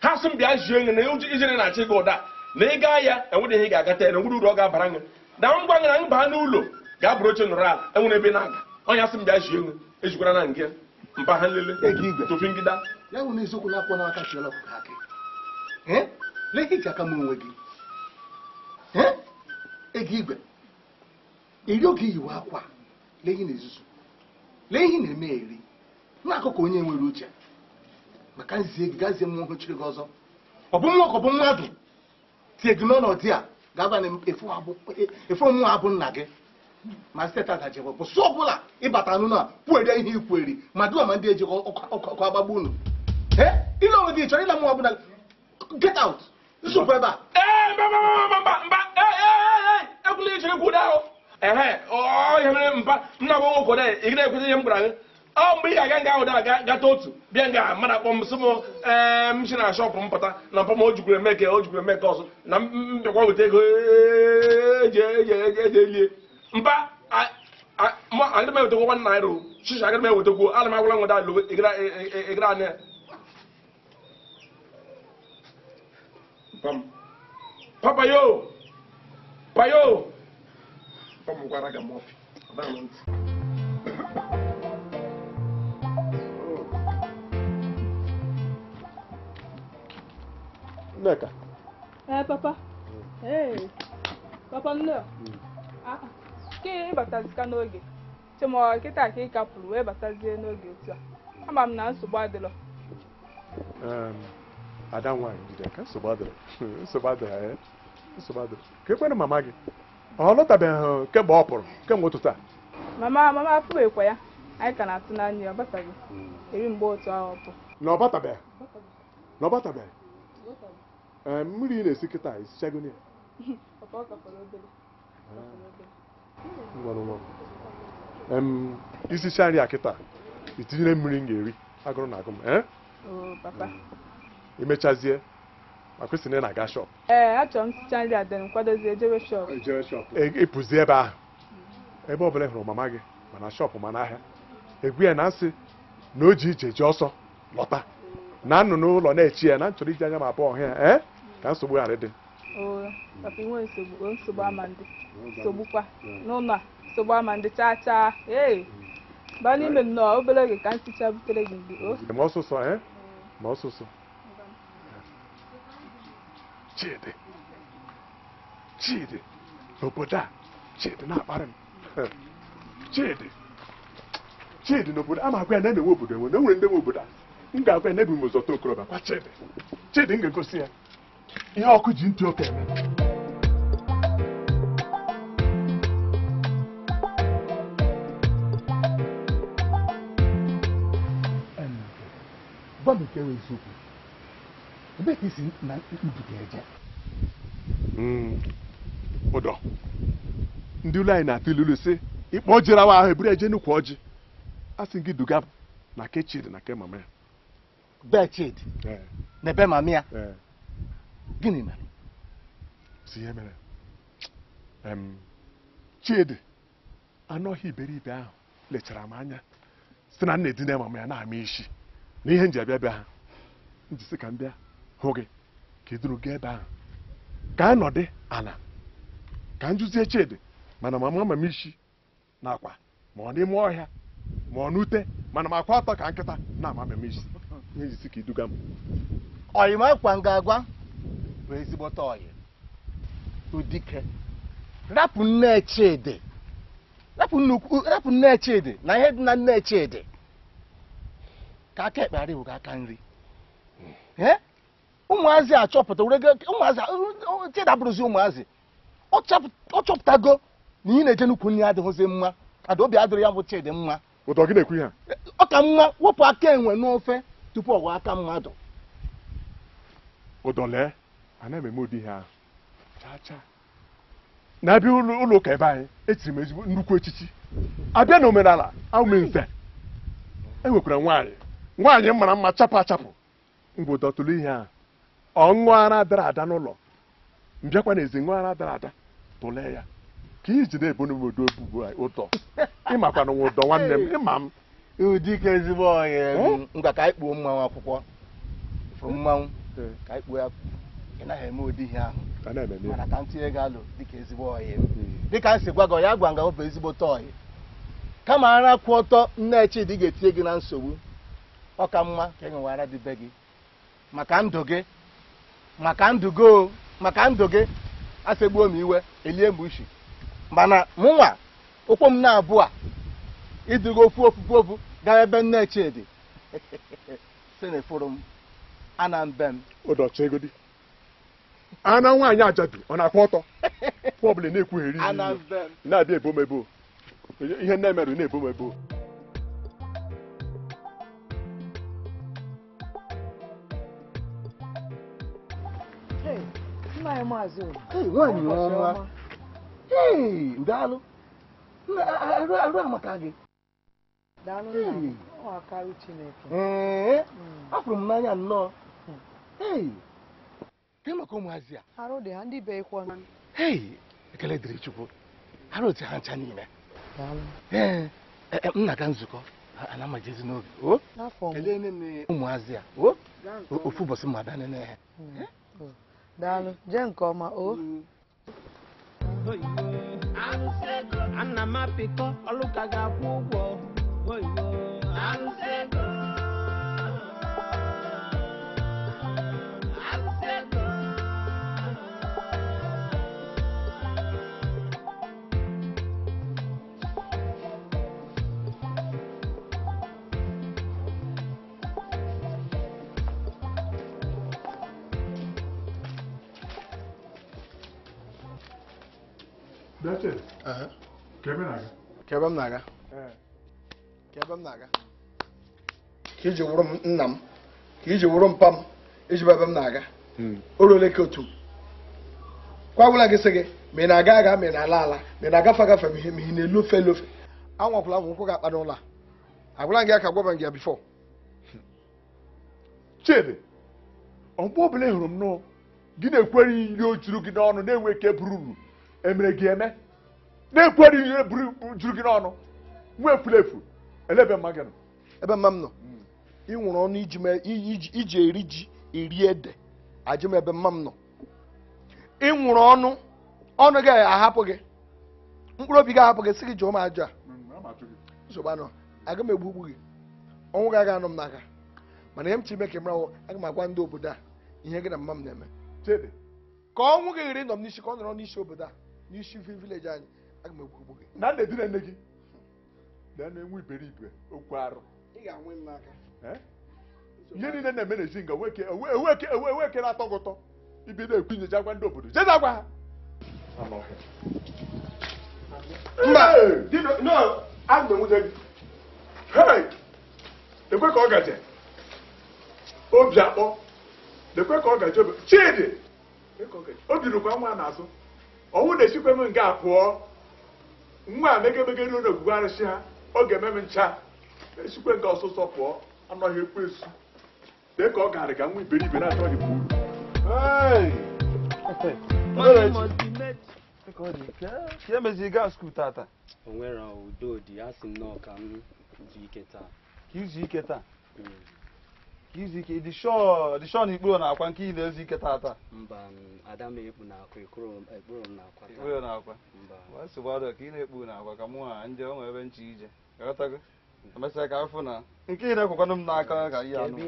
ha sị m bịa zie nye na ụjọ ijere na-achị gị ụda na ị gaa ya enwere ihe ga-agata ya na nwere uru ọ ga-abara gị na ngwa na m baa n'ụlọ ga-abụrụ oche nọrọ ala enwere ebe na-aga ọnya sị m bịa zie nye ejikwara na nke mba ha nlele tofi ngida ya bụ eziokwu na-akpọ n'aka chiọla ka akị lee iji aka m gị ego igwe Eri oge iyiwe akwa lee ihe na-ezuzu lee ihe na-eme eri n'akụkụ onye nwere uche maka nzie gị gazie nwa ogochiri gị ọzọ ọ bụ nwa ka ọ bụ mmadụ tie gị n'ọnọdụ a ga-aba na efe ọmụnwa abụ nna gị ma steeti agajebụ bụsụ ọ bụla ịbata anụ na kwuere ihe ikweri ma dua ma ndị eji ọkụ agbagbu unu ile onwe gị chọrọ ịla nwa ọbụla get out zupụ ebe a ekwula ichere kwudo ahụ ehe ọ ihe mere mba nna bụ nwoke ị ga-ekwezi ihe m gwara gị ọ mgbe ị ga-aga nga ahụ dara gata otu bịa nga mmadụ akpọ m ee na shọpụ m na mpọ m o jikwuru na mbịakwa weta ego eji elie mpa aga m ewetakwo nwa naira o shishi aga m ewetakwo ana m agwala nwada alụ anya payo gwara Nneka. Eh, papa. Hey. Papa nne. Ah, ke ịbatazika n'oge. Chimọ kịta ka ị kapụrụ wee batazie n'oge otu a. Ama m na nsogbu adịrọ. Ada nwanyị jide ka nsogbu adịrọ. Nsogbu adịrọ ya. Eh? Nsogbu adịrọ. Ka ekwere mama gị. Ọ lọtabeghị kemgbe ọ pụrụ kemgbe ụtụtụ a. Mama mama apụghịkwa ya. Anyị ka na-atụ n'anya ya ọ bataghị. Hmm. Eri mgbe otu ahụ ọ pụrụ. Na ọ batabeghị. Na ọ batabeghị. Eh, mmiri ị na-esi kịta isichago ya eh. isicha nri a kịta itinyere mmiri m ga-eri agụrụ na agụ m eh? imechazie maka na ị na-aga shọp ịpụzi e, e, e ebe ahụ ebe ọbụla hụrụ mama gị mana shọpụ ma na-ahịa egwu ya na nsị na o ji ije ji ọsọ lọta na nnụnụ ụlọ na-echi ya na nchọrọ iji anya ma abụọ ọhịa ka nsogbu ghara dị. maka nsogbu ama ndị hmm. sogbukwa hmm. n'ụlọ nsogbu ama ndị chaa chaa ee baa n'ime hmm. nnọọ obere oge ka nticha butere gị mgbe ma ọsụsọ ee eh? ma ọsụsọ chidi chidi n'obodo a chidi na-akparị m chidi chidi n'obodo a ma agwa ya na-emewe obodo enwe na enwere ndị nwe obodo a m ga-agwa ya na ebi m ụzọ tokorobịa kwa chidi chidi m ga-egosi ya ihe ọkụ ji ntị oke eme gwa m nke eziokwu ebe ka isi na mbuga eje hmm, ụdọ ndị ụlọ anyị na-atụ ilulu si ịkpọ jere awa ahụ eburu eje nnukwu ọjị a sị gị duga na ke na ke mama na ebe mama gịnị mere si ihe e mere chidi anọghị ọhịa iberibe ahụ lechara m anya site na nna edina ma ya na-ama isi na ihe nji abịa bịa ha njisi ka m bịa hụ gị ka iduru gị ebe ahụ ka a nọdị ana ka m chidi mana mama ama m isi na akwa ma ọ n'ime ọhịa ma ọ n'ute mana m akwa atọ ka nkịta na ama m isi na njisi ka iduga m ọyị m akwa m ga-agwa bụ ezigbote oyi udike rapụ nne chidi rapụ nne chidi na ihe dị na nne chidi ka aka ekpe arịwụ aka nri ụmụazị eh? achọpụta ụmụazị chidi abụrụzi ụmụazị ọ chọpụtago na ihe na-eje nnukwu nri adịghịzi mma kada obi adịrị ya bụ chidi mma ụtọ gị na-ekwu ihe ọ ka mma wepụ aka enwe n'ofe tupu ọwa aka mmadụ ụdọlee ana m eme ụdị ihe ahụ chacha na-abịa ụlọ ụka ebe anyị etiri m ezigbo nnukwu echichi abịa na omenala awụme nze enwekwara nwaanyị nwaanyị mara mma chapụ achapụ ngwụdọtụlụ ihe a ọṅụ ara dara ada n'ụlọ mbịakwa na ezi ara dara ada tụlee ya ka iji na-ebo n'obodo obubo ụtọ ịmakwana nwa ụdọ nwanne m ịma m ụdịka ezigbo ọhịa ngwa ka anyị kpuo mmanwụ akwụkwọ mmanwụ ka anyị kpuo ya ị naghị eme ụdị ihe ahụ mana ka m tinye alụ dịka ezigbo ọyị hmm. dịka nsị gwa gị ya gwa nga bụ ezigbo ọyị kama ara kwụ ọtọ nne chidi ga-etinye gị na nsogbu ọ ka mma ka e nwewara dị be gị maka ndụ gị maka ndụ gị maka ndụ gị asegbuo m iwe elie m ushi mana mụnwa ụkwụ m na-abụ a iduga okwu ofufu ofu gaa ebe nne chidi si na efuru m ana mbe m ụdọchegodi ana nwaanyị ajabi ọ na akpọ ọtọ ọbụla na-ekwugheri na-abịa ebomebo ihe nne na-ebomebo amaka gị hmm. m n'anya nnọọ hmm. gị maka ụmụazị a ekele dịrị chukwu ha otu ha ncha n'ime eh, eh, eh, m na-aga nzukọ ana amajezi n'oge ụmụazị a ofu ụbọchị mmadụ anene ha hmm, daalụ jee nke ọma o ana m apịkọ ọlụ ga-akwụ ụgwọ Beche. ebe na-aga. na-aga. Ka ebe m na-aga. Ka iji wụrụ m ka mpa m na-aga hmm. otu kwa gwụla gị sị gị ma na-aga aga ma na-ala ala ma na-agafe agafe ma ihe ị na-elu ofe elu ofe anwakwụla m ụkwụ ga-akpa n'ụlọ a agwụla gị aka gwaba gị ya bifọ chidi ọmgbe ọbụla hụrụ m gị na-ekwere ihe o n'ọnụ na-enwe ike buru emere gị eme na-ekwu eri ihe juru gị n'ọnụ nwa efulefu elebe mma gị nọ ebe mma m nọ nwụrụ ọnụ iji eri ji eri ede ajụ m ebe mma m nọ nwụrụ ọnụ ọnụ gị ahapụ gị mkpụrụ obi gị ahapụ gị sị gị jụọ m ajụ a nsogbu anọ aga m egbu gị ọnwụ gị aga anụ m n'aka mana ihe m chiri meke mrawụ aga m agwa ndị obodo a ihe gị na mma m na-eme ka ọnwụ gị ghara ịnọ m n'isi ka ọ nọrọ n'isi obodo a n'isi mfe vileji anyị aga m na nna edina nne gị na-enwe iberibe okwu arụ ihe niile na-eme na ezi nga ewekere atọ gị ụtọ ibido ekwu nyecha agwa ndị obodo jeza agwa ha ọ gaje obi akpọ ka ọ gaje ọnwụ na-esikwa m nke a pụọ nwa a megemegeri na ogwugwe arụsị ha ọ ga-eme m ncha esikwe nke ọsụsọ pụọ anọghị ekwu esu dị ka e ọ ga ga nwa iberibe na-atọghị m uru onwere nnọọ ka izu ike taa mm. ka izu ike na ikporo na-akwa nke ị na-ezu ike tata ikporo na-akwa ka ị na-ekpu na-akwa ka mụ ha nje onwe ebe nche ije emesịa ka afụ na nke ị na-ekwekwanụ m n'aka ka ihe anụ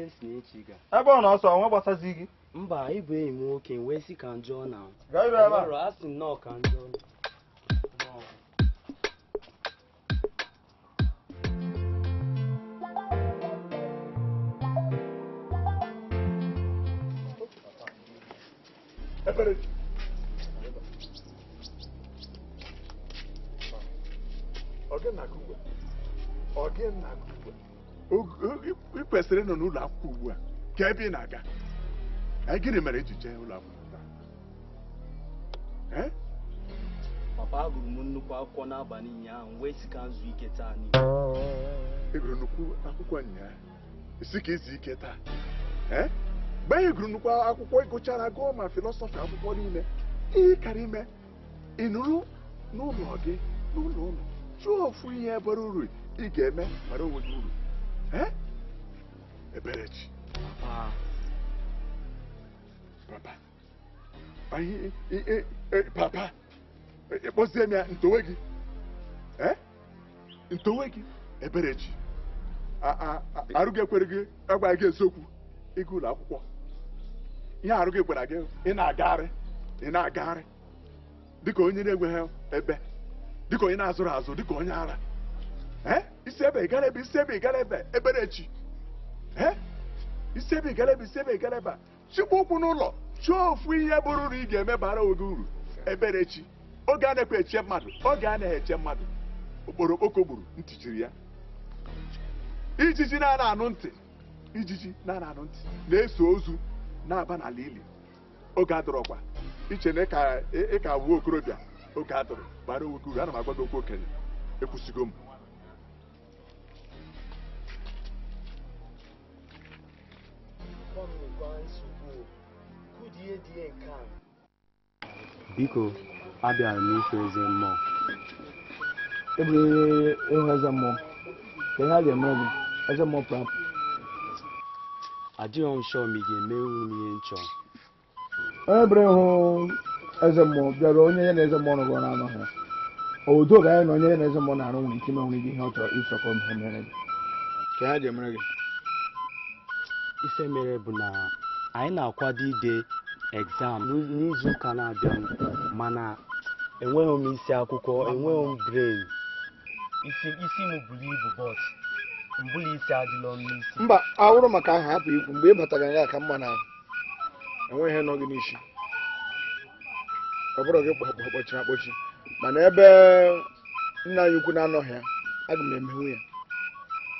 ebe ọ na-ọsọ onwe gbasazi gị mba ịbụ enyi m nwoke wee sị ka njọ na برد ọgị na-akụ ugbu a ọgị na-akụ ugbu a eh, ị eh, eh, kwesịrị nọ n'ụlọ akwụkwọ ugbu a ka ebe ị na-aga gịnị mere iji e ụlọ akwụkwọ papa agụrụ nnukwu akwụkwọ n'abalị ụnyaahụ wee si ka nzu ike taa n'ihu ị gụrụ nnukwu akwụkwọ ụnyaahụ isi ka izu ike taa mgbe anyị gụrụ nnukwu akwụkwọ ịgụchara gụọ ma filọsọfị akwụkwọ niile ihe kara ime ị nụrụ n'ụlọ gị n'ụlọ ụlọ chụọ ofu ihe bara uru ị ga-eme mara onwe gị uru eberechi papa papa ịkpọzie m ya ntowe gị ntowe gị eberechi arụ gị ekwere gị agwa gị eziokwu ịga ụlọ akwụkwọ ihe arụ gị gwara gị ị na-agagharị ị na-agagharị dịka onye na-enweghị ebe dịka onye na-azụrụ azụ dịka onye ara isi ebe gara ebe isi ebe gara ebe eberechi isi ebe gara ebe isi ebe gara ebe chịkwa ụkwụ n'ụlọ chụọ ofu ihe bụrụ na ị ga eme bara oge uru eberechi oge a na-ekwe eche mmadụ oge a na-eche mmadụ okporo okpoko gburu ntị chiri ya ijiji na-anụ ntị ijiji na-anụ ntị na-eso ozu na-aba n'ala ili oge adọrọkwa iche na ịka wuo okorobịa oge adọrọ bara nwoke uru ana m agwa gị okwu okenye ekwusigo m biko abịara m eze mmụọ ebunyere ịhụ eze mmụọ ka ihe a ga-emere gị eze mmụọ prapụ adịghị m shọ ma ị ga eme m ihe nchọ onye bụrụ ịhụ eze mmụọ bịara onye ya na eze mmụọ rụgọ na-amaghị obodo ga ya na onye ya na eze mmụọ na-arụ nwere ike imenwere gị ihe ọ chọrọ ịchọkọ ihe mere gị ka ha ji mere gị ife mere bụ na anyị na-akwado ide exam n'izu ụka na-abịa mana enweghị m isi akwụkwọ enweghị m bren isi m buru ibu bọs mbụla isi adịla n'ọnụ isi mba awụrụ maka aha hapụ ikwu mgbe ị batara ya ka mma na enweghị nọ gị n'isi ọ bụrụ gị kpọchiri akpọchi mana ebe nna anyị ukwu na-anọghị ya aga m ya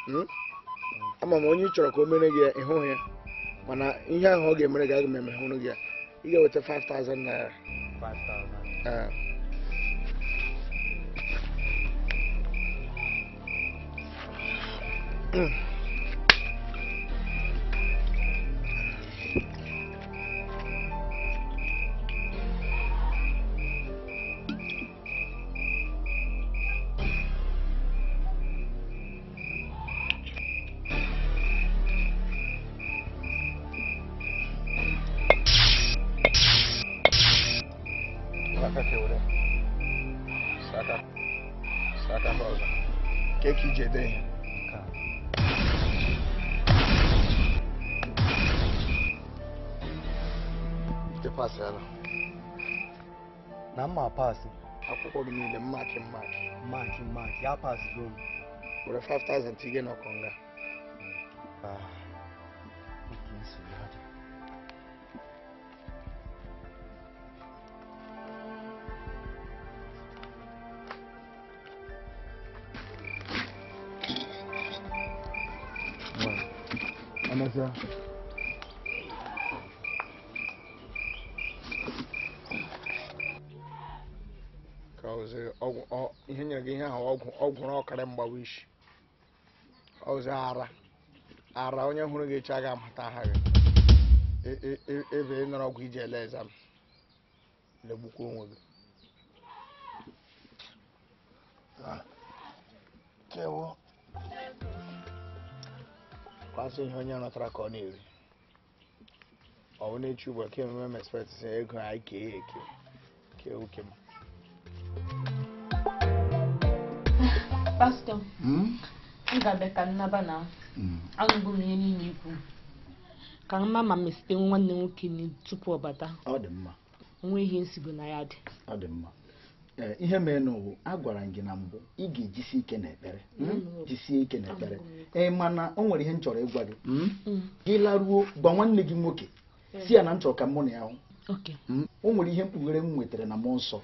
hmm? ama m onye ị chọrọ ka o mere gị ịhụghị ya mana ihe ahụ ọ ga-emere gị aga m emehụrụ ya ị ga-eweta 5000 naira 嗯 the 5,000 to get Cause uh, oh, oh, here again, how i ọzọ ara ara onye hụrụ gị echi aga amata aha gị e, e, e, ebe ị nọrọ ọgwụ iji ele ezam legbukwa onwe gị kewo kwasị ihe onye rọtara ka ọ na-eri ọ bụ na-echi ugbu a ememe ego anyị kee eke kewu kem ah, Pastor. Hmm? ngabe ka nnaba na anụbụ m ihe niile ikwu ka m ma ma mesite nwanne nwoke tupu ọ bata nwee ihe nsigo na ya dị e, ihe mere n'ụwa a gwara gị na mbụ ị ga-ejisi ike n'ekpere hmm? mm. jisie ike n'ekpere ee mana o nwere ihe m chọrọ ịgwa gị hmm? Hmm. gị laruo gwa nwanne gị nwoke si ya na m chọrọ ka mụ na ya hụ o nwere ihe mkpughere m nwetara na mụ nsọ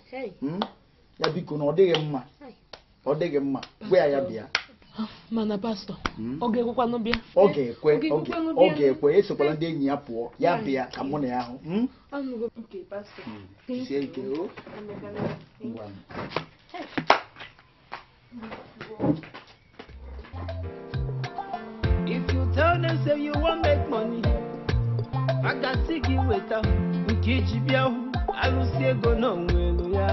ya biko na ọ dịghị mma ọ dịghị mma gwa ya ya bịa mana pastọ ọ ga-ekwekwa n'ụbịa esokwala ndị enyi ya pụọ ya bịa ka mụ na ya hụ hmm? hmm. oh. If you tell them say you wan make money, maka si gị weta nke iji bịa hụ arụsị ego na onwe ya.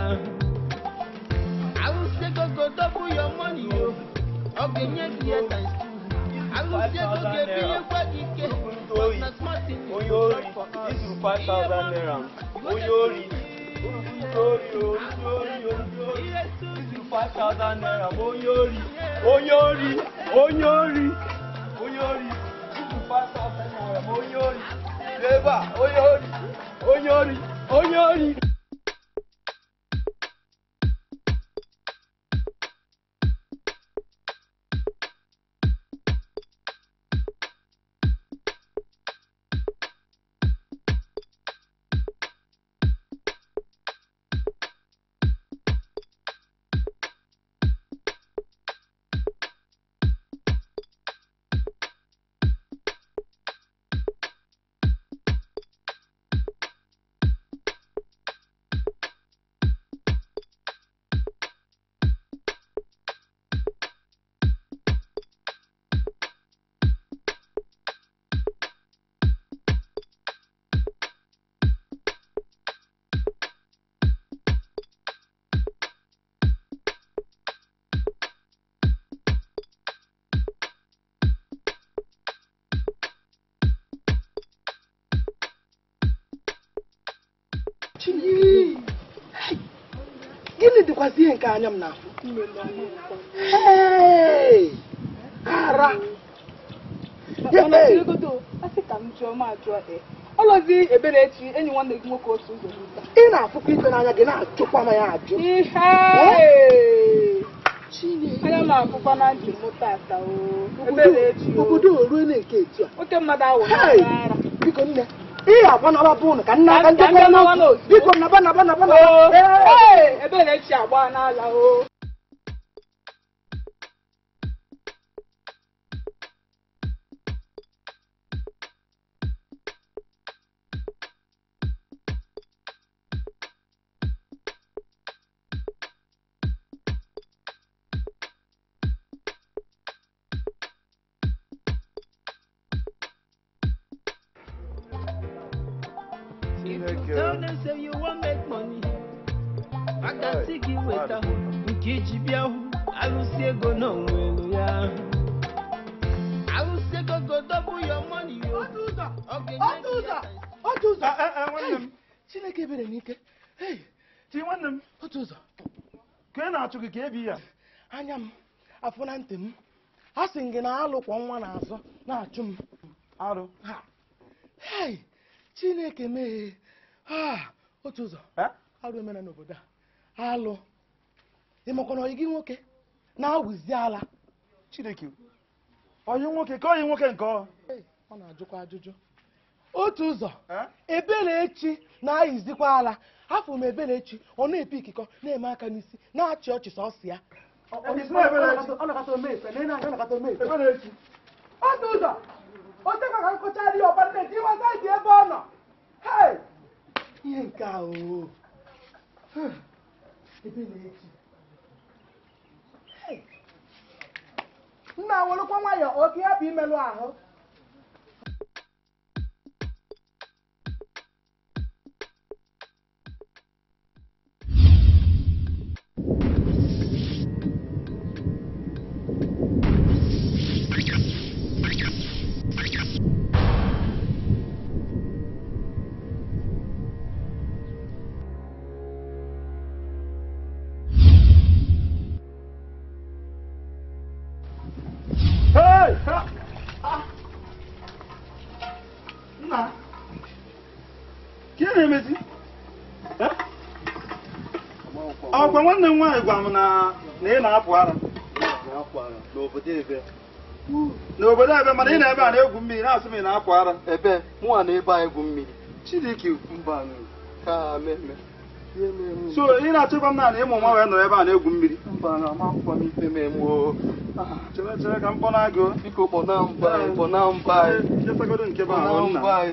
Arụsị ego go double your money o. Oh ọ̀gẹ̀yẹ bí ẹ tàn sí. Alùpùpù tó gé bí ẹ fẹ́ di ké. Oyóòrì ìsù five thousand naira. Oyóòrì olùdóòrì olùdóòrì olùdóòrì ìsù five thousand naira. Oyóòrì oyóòrì oyóòrì oyóòrì ìsù five thousand naira. Oyóòrì lébà oyóòrì oyóòrì oyóòrì. ọkwazi ihe nke anya m na-afụ ara e, ọlọzi eberechi enyi nwanne gị nwoke otu ụzọ ị na-afụkwa ife n'anya gị na-ajụkwa ma ya ajụ anya m afụkwa na ntị m tata obodo orue na nke etu a biko nne ihe agba nabapụ ụnụ ka nna aka nchekwa n'otu biko naba naba naba naba ebere echi agba n'ala o na-alụkwọ nwa n'azụ na-achụ m arụ hei chineke meghee ah, otu ụzọ arụ emere n'obodo a alụ ịmakwana ọyị gị nwoke na-awụzi ala chineke ọyị nwoke ka ọyị nwoke nke ọ ọ na-ajụkwa ajụjụ otu ụzọ ebelechi na-ayizikwa ala afọ m ebelechi ọ na-epe ikikọ na-eme aka n'isi na-achị ọchị sọsọ ya otu ụzọ otekwa ka nkụchara ihe ọba nne gị ịwata dị ebe ọ nọ ihe nke a oo ebe na-eti nna nwụrụkwa nwayọ oke ya bụ imelụ ahụ nwanne nwaanyị gwa m na ị na-apụ ara n'obodo ebe mana ị na-ebe a na-egwu mmiri na-asị m ị na-apụ ara ebe mụnwa na ebe egwu mmiri Chidike so ị na-achọkwa m naanị ịmụ nwa wee nọrọ ebe a na-egwu mmiri ah, chere chere ka m biko mba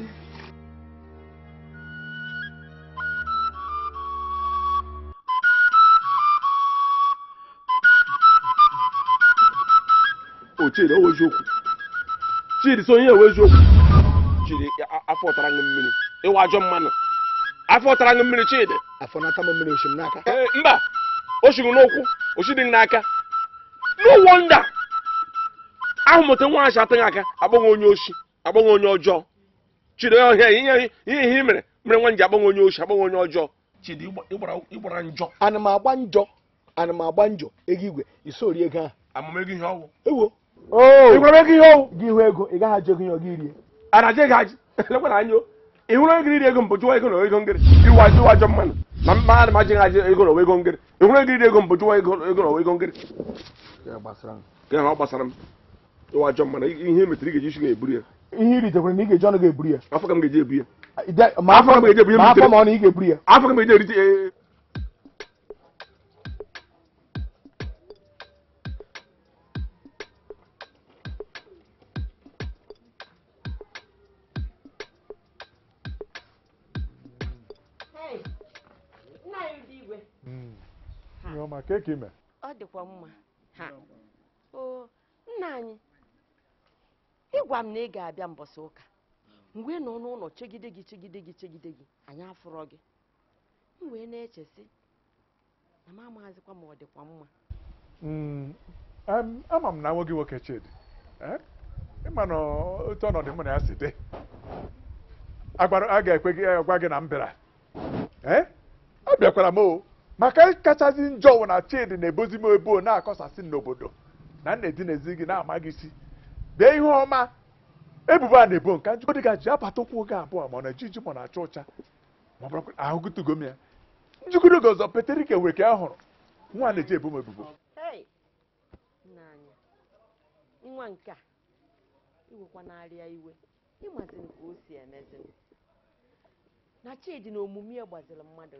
Chidi ọwụ eziokwu Chidi so onye ewe eziokwu Chidi afọ ọtara ṅụ mmiri ịwa ajọ mmanụ afọ ọtara ṅụ mmiri Chidi afọ nata m mmiri oshim n'aka e, mba o shiri n'ụkwụ oshidi n'aka no wonder ahụ mụta nwa ahụ atụghị aka agbanwe onye oshi agbanwe onye ọjọọ Chidi ọhịa ihe ihe i mere mere nwa ji agbanwe onye oshi agbanwe onye ọjọọ Chidi ịgbara njọ ana m agba njọ ana m agba njọ ego igwe isori ego ahụ amụmego ihe ọwụ ewo Oh. ịhụrụ ihe gị hụ ego ị gaghị ajụ ego ana je gị ajụ lekwara anya ịhụrụ ego ego mbụ jụwa ego na ego ngịrị iwu ajụ ajọ mmanụ na mmadụ ego na ego ngịrị ịhụrụ ego iri ego mbụ jụwa ego na ego ngịrị gịnị ọ gbasara m ịwa ajọ mmanụ ihe metere ị isi iri na afọ ka ga afọ afọ ka ga keki ime ọ dịkwa mma ha oo nna anyị ịgwa m na ị ga-abịa mbọsị ụka hmm. mgbe nọ n'ụlọ chegide gị chegide gị chegide gị anyị afụrọ gị m wee na-echesi na m amaghazikwa ma ọ dịkwa mma hmm. ama m na nwoke nwoke Chidi eh? ịma na otu ọnọdụ m na ya si dị a ga-ekwe gị gwa gị na m bịara eh? abịakwara m o maka kachasị njọ wụ na chidi na-ebozi m ebo na-akọsasị n'obodo na nna edinezi gị na-amaghị isi dee ihe ọma ebubo a na-ebo nka njikọdị gaji abata ụkwụ oge abụọ ma ọ na-eji iji ma na-acha ụcha ma ọ bụrụ ahụgụtụgo m ya njikọdị oge ọzọ peterike wee ka a hụrụ nwa na-eji ebo m ebubo a na chidi na omume ya gbaziri mmadụ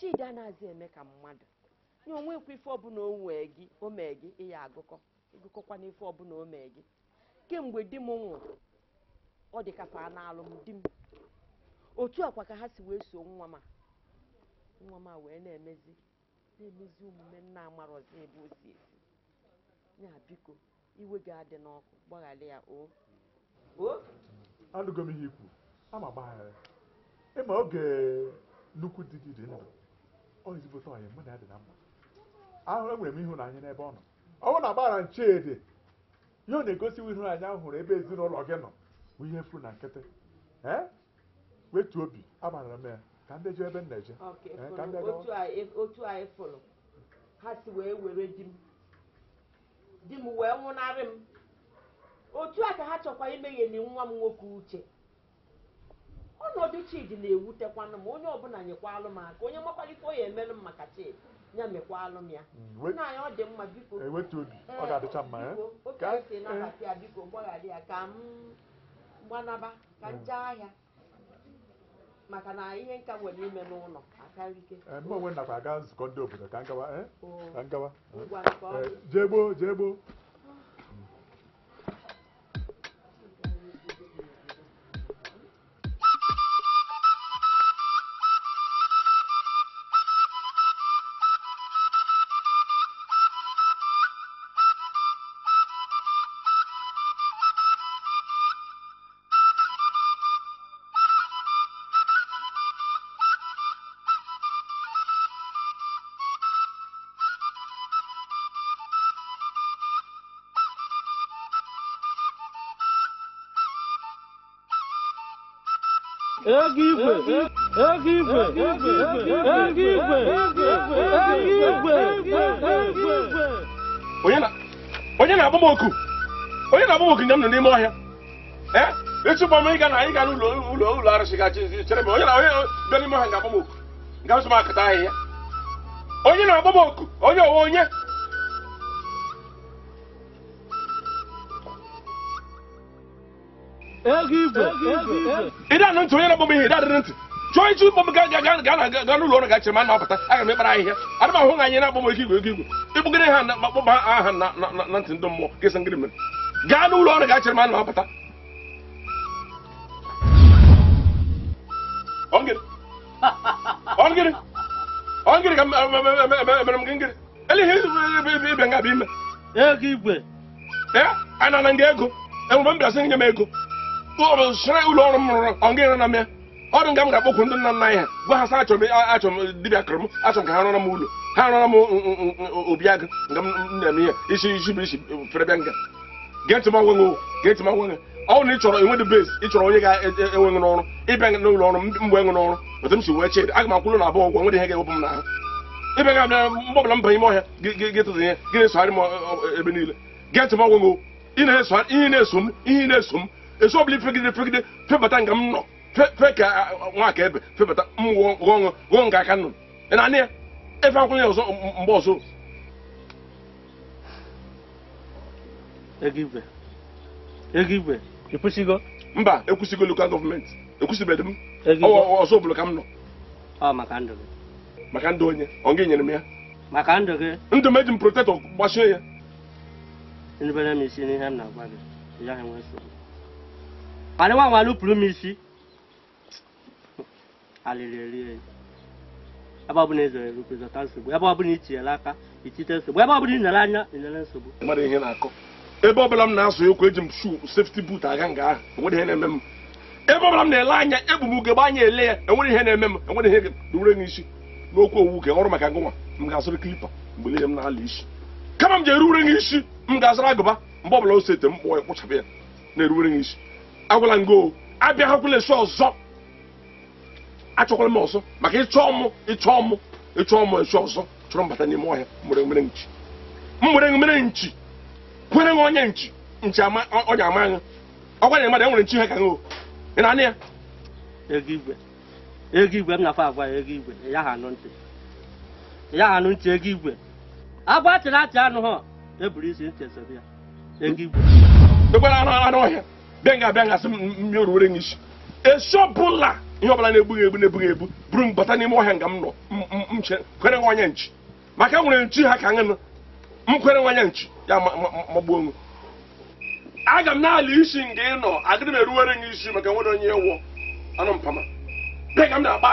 chidi anaghịzi eme ka mmadụ nye ife ọbụla o gị o mee gị ịya agụkọ ịgụkọkwa n'ife ọbụla o mee gị kemgbe di m nwụrụ ọ dị ka fa m di m otu akwa ka ha si wee so nwa ma nwa ma wee na-emezi na-emezi omume nna amarọzi ebe o si esi ya biko iwe gị adị n'ọkụ gbaghara ya o anụgo m ihe ikwu ama gbaghara ịma oge nnukwu di gị dị ndụ ọ ezigbote ọyị mụ na ya dị na mma ahụrụ enwere m ịhụnanya n'ebe ọ nọ ọ bụrụ na agbara nchedị ihe ọ na-egosiwa ịhụnanya ahụ hụrụ ebe ezinụlọ gị nọ bụ ihe furu na nkịtị ee wetu obi agbara m ya ka ndị jụ ebe m na-eje otu anyị fụrụ ha si wee were di m di m wee nwụnarị m otu a ka ha chọkwa na nwa m nwoke uche ọnọdụ chidi na-ewutekwanụ ma onye ọbụla nyekwalụ m aka onye makwalikwa o ya emelụ m maka chidi ya mekwalụ m ya mm, naanyị ọ dị mma biko ofe eh, eh? esi nabata ya eh? biko gbaghara ya ka m gbanaba ka m jee mm. ahịa maka na ihe nka nwere ime n'ụlọ akarike mgbe onwe nakwa aga nzukọ ndị obodo ka m gawa oh. jee gboo jee gboo ego igwe ego igwe ego igwe ego igwe onye na-agba m oku onye na-agba m oku nọ n'ime ọhịa onye na onye bịa n'ime na-agba m oku onye onye ịdị anụ ntị onye na-agbam ihe adịrị ntị chọọ iji ụgbọ m ga ga ga ga n'ụlọ ọrụ gachiri ma na-apụta aga m ịkpara ahịhịa ana m ahụ na anyị na-agbam ego igwe ego igwe ịgbụgịrị ha akpọba aha na ntị ndụ mmụọ kesị ngịrị mere gaa n'ụlọ ọrụ gachiri ma na-apụta ongịrị ka mere m gị ngịrị eleghị ịbịa nga bụ ime ego igwe ee ana na nga ego enwere m bịasị nye m ego ọ bụ sịrị ụlọ ọrụ m rụrụ ọ ga na mmịa ọ nga m ga ndị nna nna anyị gwa ha sa achọ m dibịa kụrụ m ha rụọra m ụlọ ha obi agụ nga m na-eme ihe isi isi bụ isi fere nga gee ntị m agwenwe gee ntị m na e, e, enwe dị onye ga enweghị n'ọrụ ịbịa n'ụlọ ọrụ mgbe enwe n'ọrụ otu m si wee chee aga m akwụrụ na abụọ ụgwọ nwere ihe ga-ewepụ m n'ahụ ịbịa ga abịa m banye m ọhịa ihe gị m ebe niile gee ntị m na-eso m ihe na-eso m esu obili fegide fegide febata nga e e m nọ fe e ka nwaka ebe febata m wụọ ọṅụ ghọọ nke aka nnụnụ ị na-anị ya efe akwụkwọ ya ọzọ mgbe ọzọ ego igwe ekwusigo. mba ekwusigo lokal gọọmenti ekwesịbeghị m ọzọ ọbụla ka m nọ ọ maka ndụ gị maka ndụ onye ọ gị nyere m ya maka ndụ gị ndụ m eji m protektọ gbasie ya nubere m isi n'ihe m na-agwa gị ya enwe nsogbu Pale wa walu pulu misi. Alelele. Ebe ọbụla ezere nsogbu, ebe ọbụla ichiela aka, ichite nsogbu, ebe anya, nsogbu. na-akọ. Ebe ọbụla m na-asụ ekwu eji m aga nga ahụ, enwere ihe na-eme Ebe ọbụla m na-ele anya, egbu m ugegbe anya ele ya, enwere ihe na-eme m, enwere ihe dure n'isi. N'okwu owu ọrụ maka gụnwa, m ga-asụrụ mgbe niile m na-ala isi. Kama m m ga-azụrụ agụba mgbe ọbụla o sete m ya kpụchapụ agwala m gị abịaghakwala esi ọzọ achọkwala m ọzọ maka ịchọ mụ ịchọ mụ ịchọ mụ esi ọzọ chọrọ mbata n'ime ọhịa nwere nwere nchi nwere nwere nchi kwere nwe onye nchi nchi onye ama anya ọkwa nye mmadụ enwere nchi ihe ka ị na-anị ya ego igwe ego igwe m nafa agwa ya ego igwe ya ha anụ ntị ya ha anụ ntị ego igwe agwa chịrị achị anụ ha eburu isi ntị esobe ya ego igwe ekwere anụ anụ ọhịa bịa nga abịa ngasị mmeruwere n'ishi esi ọbụla ihe ọbụla na-egbughị egbu na-ebughị egbu buru m bata n'ime ọhịa nga m nọ kwere nwa onye nchi maka nwere nchi ha ka nụ m kwere nwa onye nchi ya magbuo onwe aga m na isi nga ị nọ adịrị m eruwere gị isi maka nwere onye wụọ anụ mpama bịa ka m na-akpa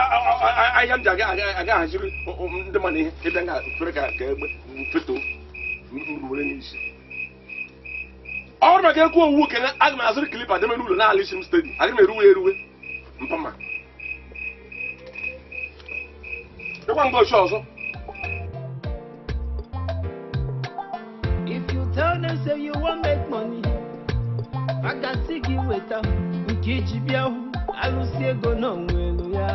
ahịa m ji aga ahaziri ndị mmadụ ihe ịbịa ga fere ka egbe mfeto m ruwere gị isi ọrụ na ga-ekwu owu kene aga m azụrụ klipa deme n'ụlọ na-ala isi m stedi aga m eruwe eruwe mpama ịkwa mgbe ochie ọzọ if you tell them say you wan make money maka si gị weta nke iji bịa hụ alụsi ego na onwe elu ya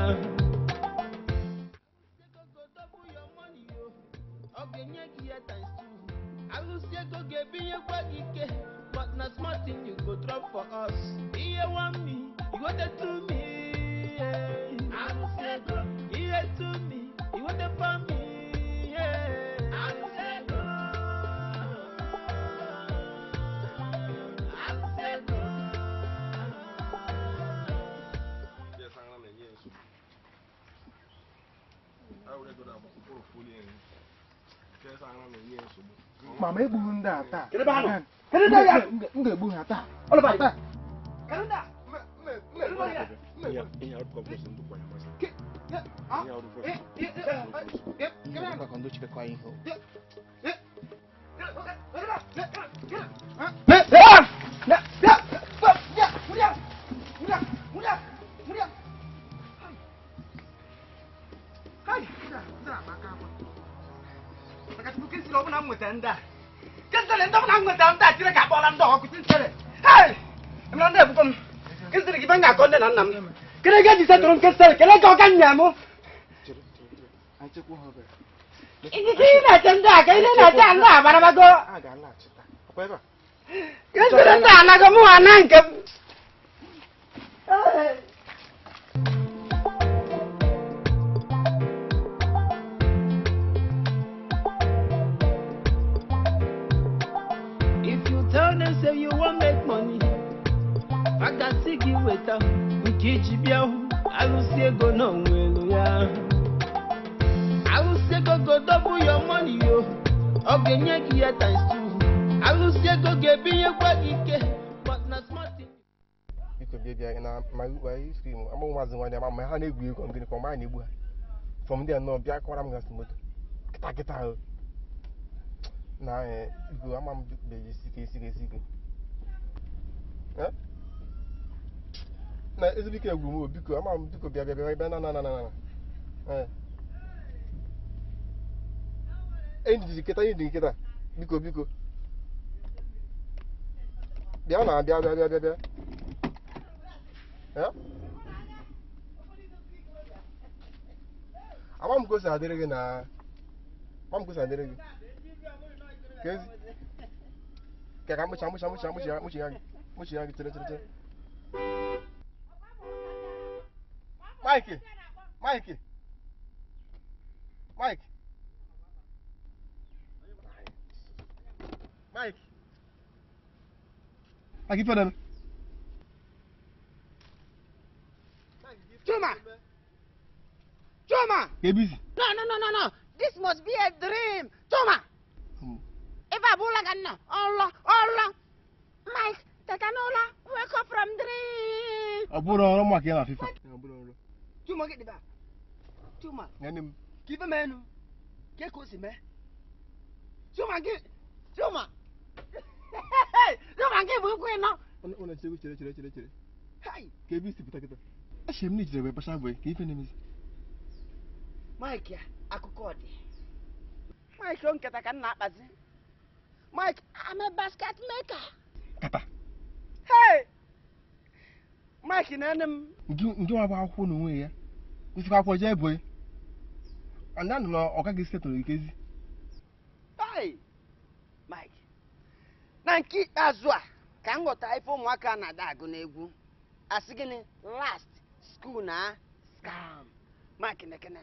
taa. Kedụ ebe damu in ji can da kai ne na can da bar bago akwai ba yanzu na ga mu a nan ha na-egwu egwu ngịnị kwa mgbe a na-egbu ha fọm ndị a nọ bịa kọwara m moto kịta kịta ahụ na igwe ama m na egwu m biko ama m biko bịa bịa bịa na na nkịta biko na bịa bịa bịa bịa agba m adịrị gị na agba m adịrị gị kezi ka ka mkpụcha mkpụcha mkpụcha mkpụcha mkpụcha ya gị mkpụcha ya gị tere tere tere Mike Mike Mike Mike maịkị, ife dana Toma! Kebisi. No, no, no, no, no. This must be a dream. Toma! Hmm. If I pull again, no. Allah, Allah. Mike, Takanola, wake up from dream. Aburo ọ̀rọ̀ mọ̀ kìí na fífa. Aburo ọ̀rọ̀. Tuma gidi ba. Tuma. Yanim. Kife mẹ́nu. Kéko si mẹ́. Tuma gi. Tuma. Tuma gi burúkú iná. Ọ̀nà ọ̀nà chere chere chere chere. Kebisi pìtàkìtà. Ẹ ṣe mí ní ìjìnlẹ̀ wẹ̀ bá ṣáà wẹ̀ kì í fẹ́ ní mi sí. Mike akụkọ ọ dị Mike o nketa ka m na-akpazi Mike I'm a basket maker papa hey Mike na-ene m ndị nwa bụ akwụkwọ na onwe ya kwụsịkwa akwụkwọ jee ebo ndị nụ na ọ gaghị setụrụ nkezi hey Mike na nke ikpeazụ a ka m ghọtara ife ụmụaka na-ada agụ n'egwu asị gịnị last school na scam Mike nekene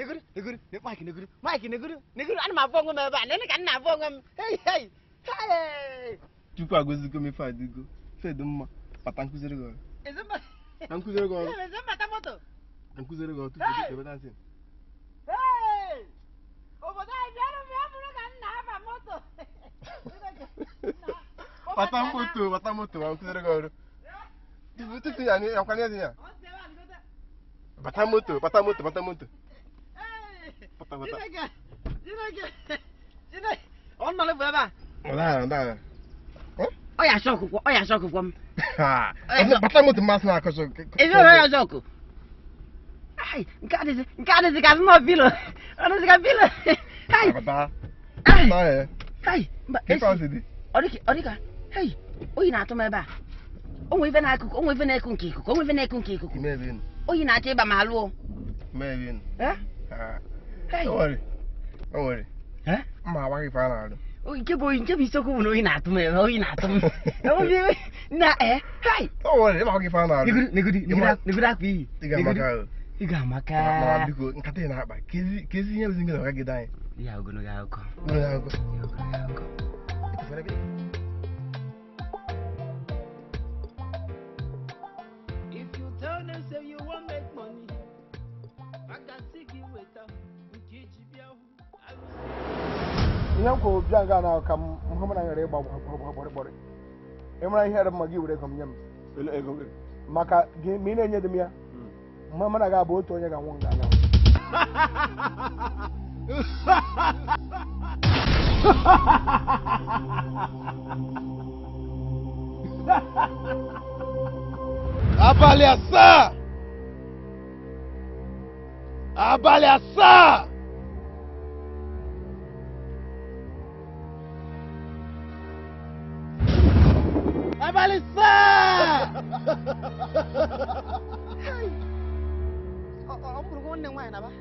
negoro negoro mike negoro mike negoro negoro ana m onwe m ebe a ka na-abụ onwe m chukwu m ife mma nkụziri tupu ebe dansị obodo anyị bịara ka m na-aba moto pata moto pata moto ma nkụziri gị ọrụ tupu tupu ya ya bata moto bata moto moto ಗೊತ್ತ ಗೊತ್ತ ebe a ọ ya na nke nke atụ na-achọ ịba ma alụọ Don't worry. Don't worry. Eh? Ma wa ki fara do. O nke bo nke bi na atum e, na atum. na eh. Kai. worry, ma wa ki fara do. Nigudi, nigudi, Iga maka. Iga maka. Ma biko nkata na akpa. Kezi kezi nye bizinga na ka gidan. Ya ogono ga akọ. Ogono ga akọ. ogono ga akọ. ihe m kwuru bịa nga na ka hụ m na nyere ịgba gbọrịgbọrị ịmara ihe ere mma gị were ego m nye m maka gị ma ị na-enye dị m ya mma mana ga abụ otu onye ga-anwụ nga anyanwụ abalị asaa abalị asaa ม้นหนึ่งไหวนะปะ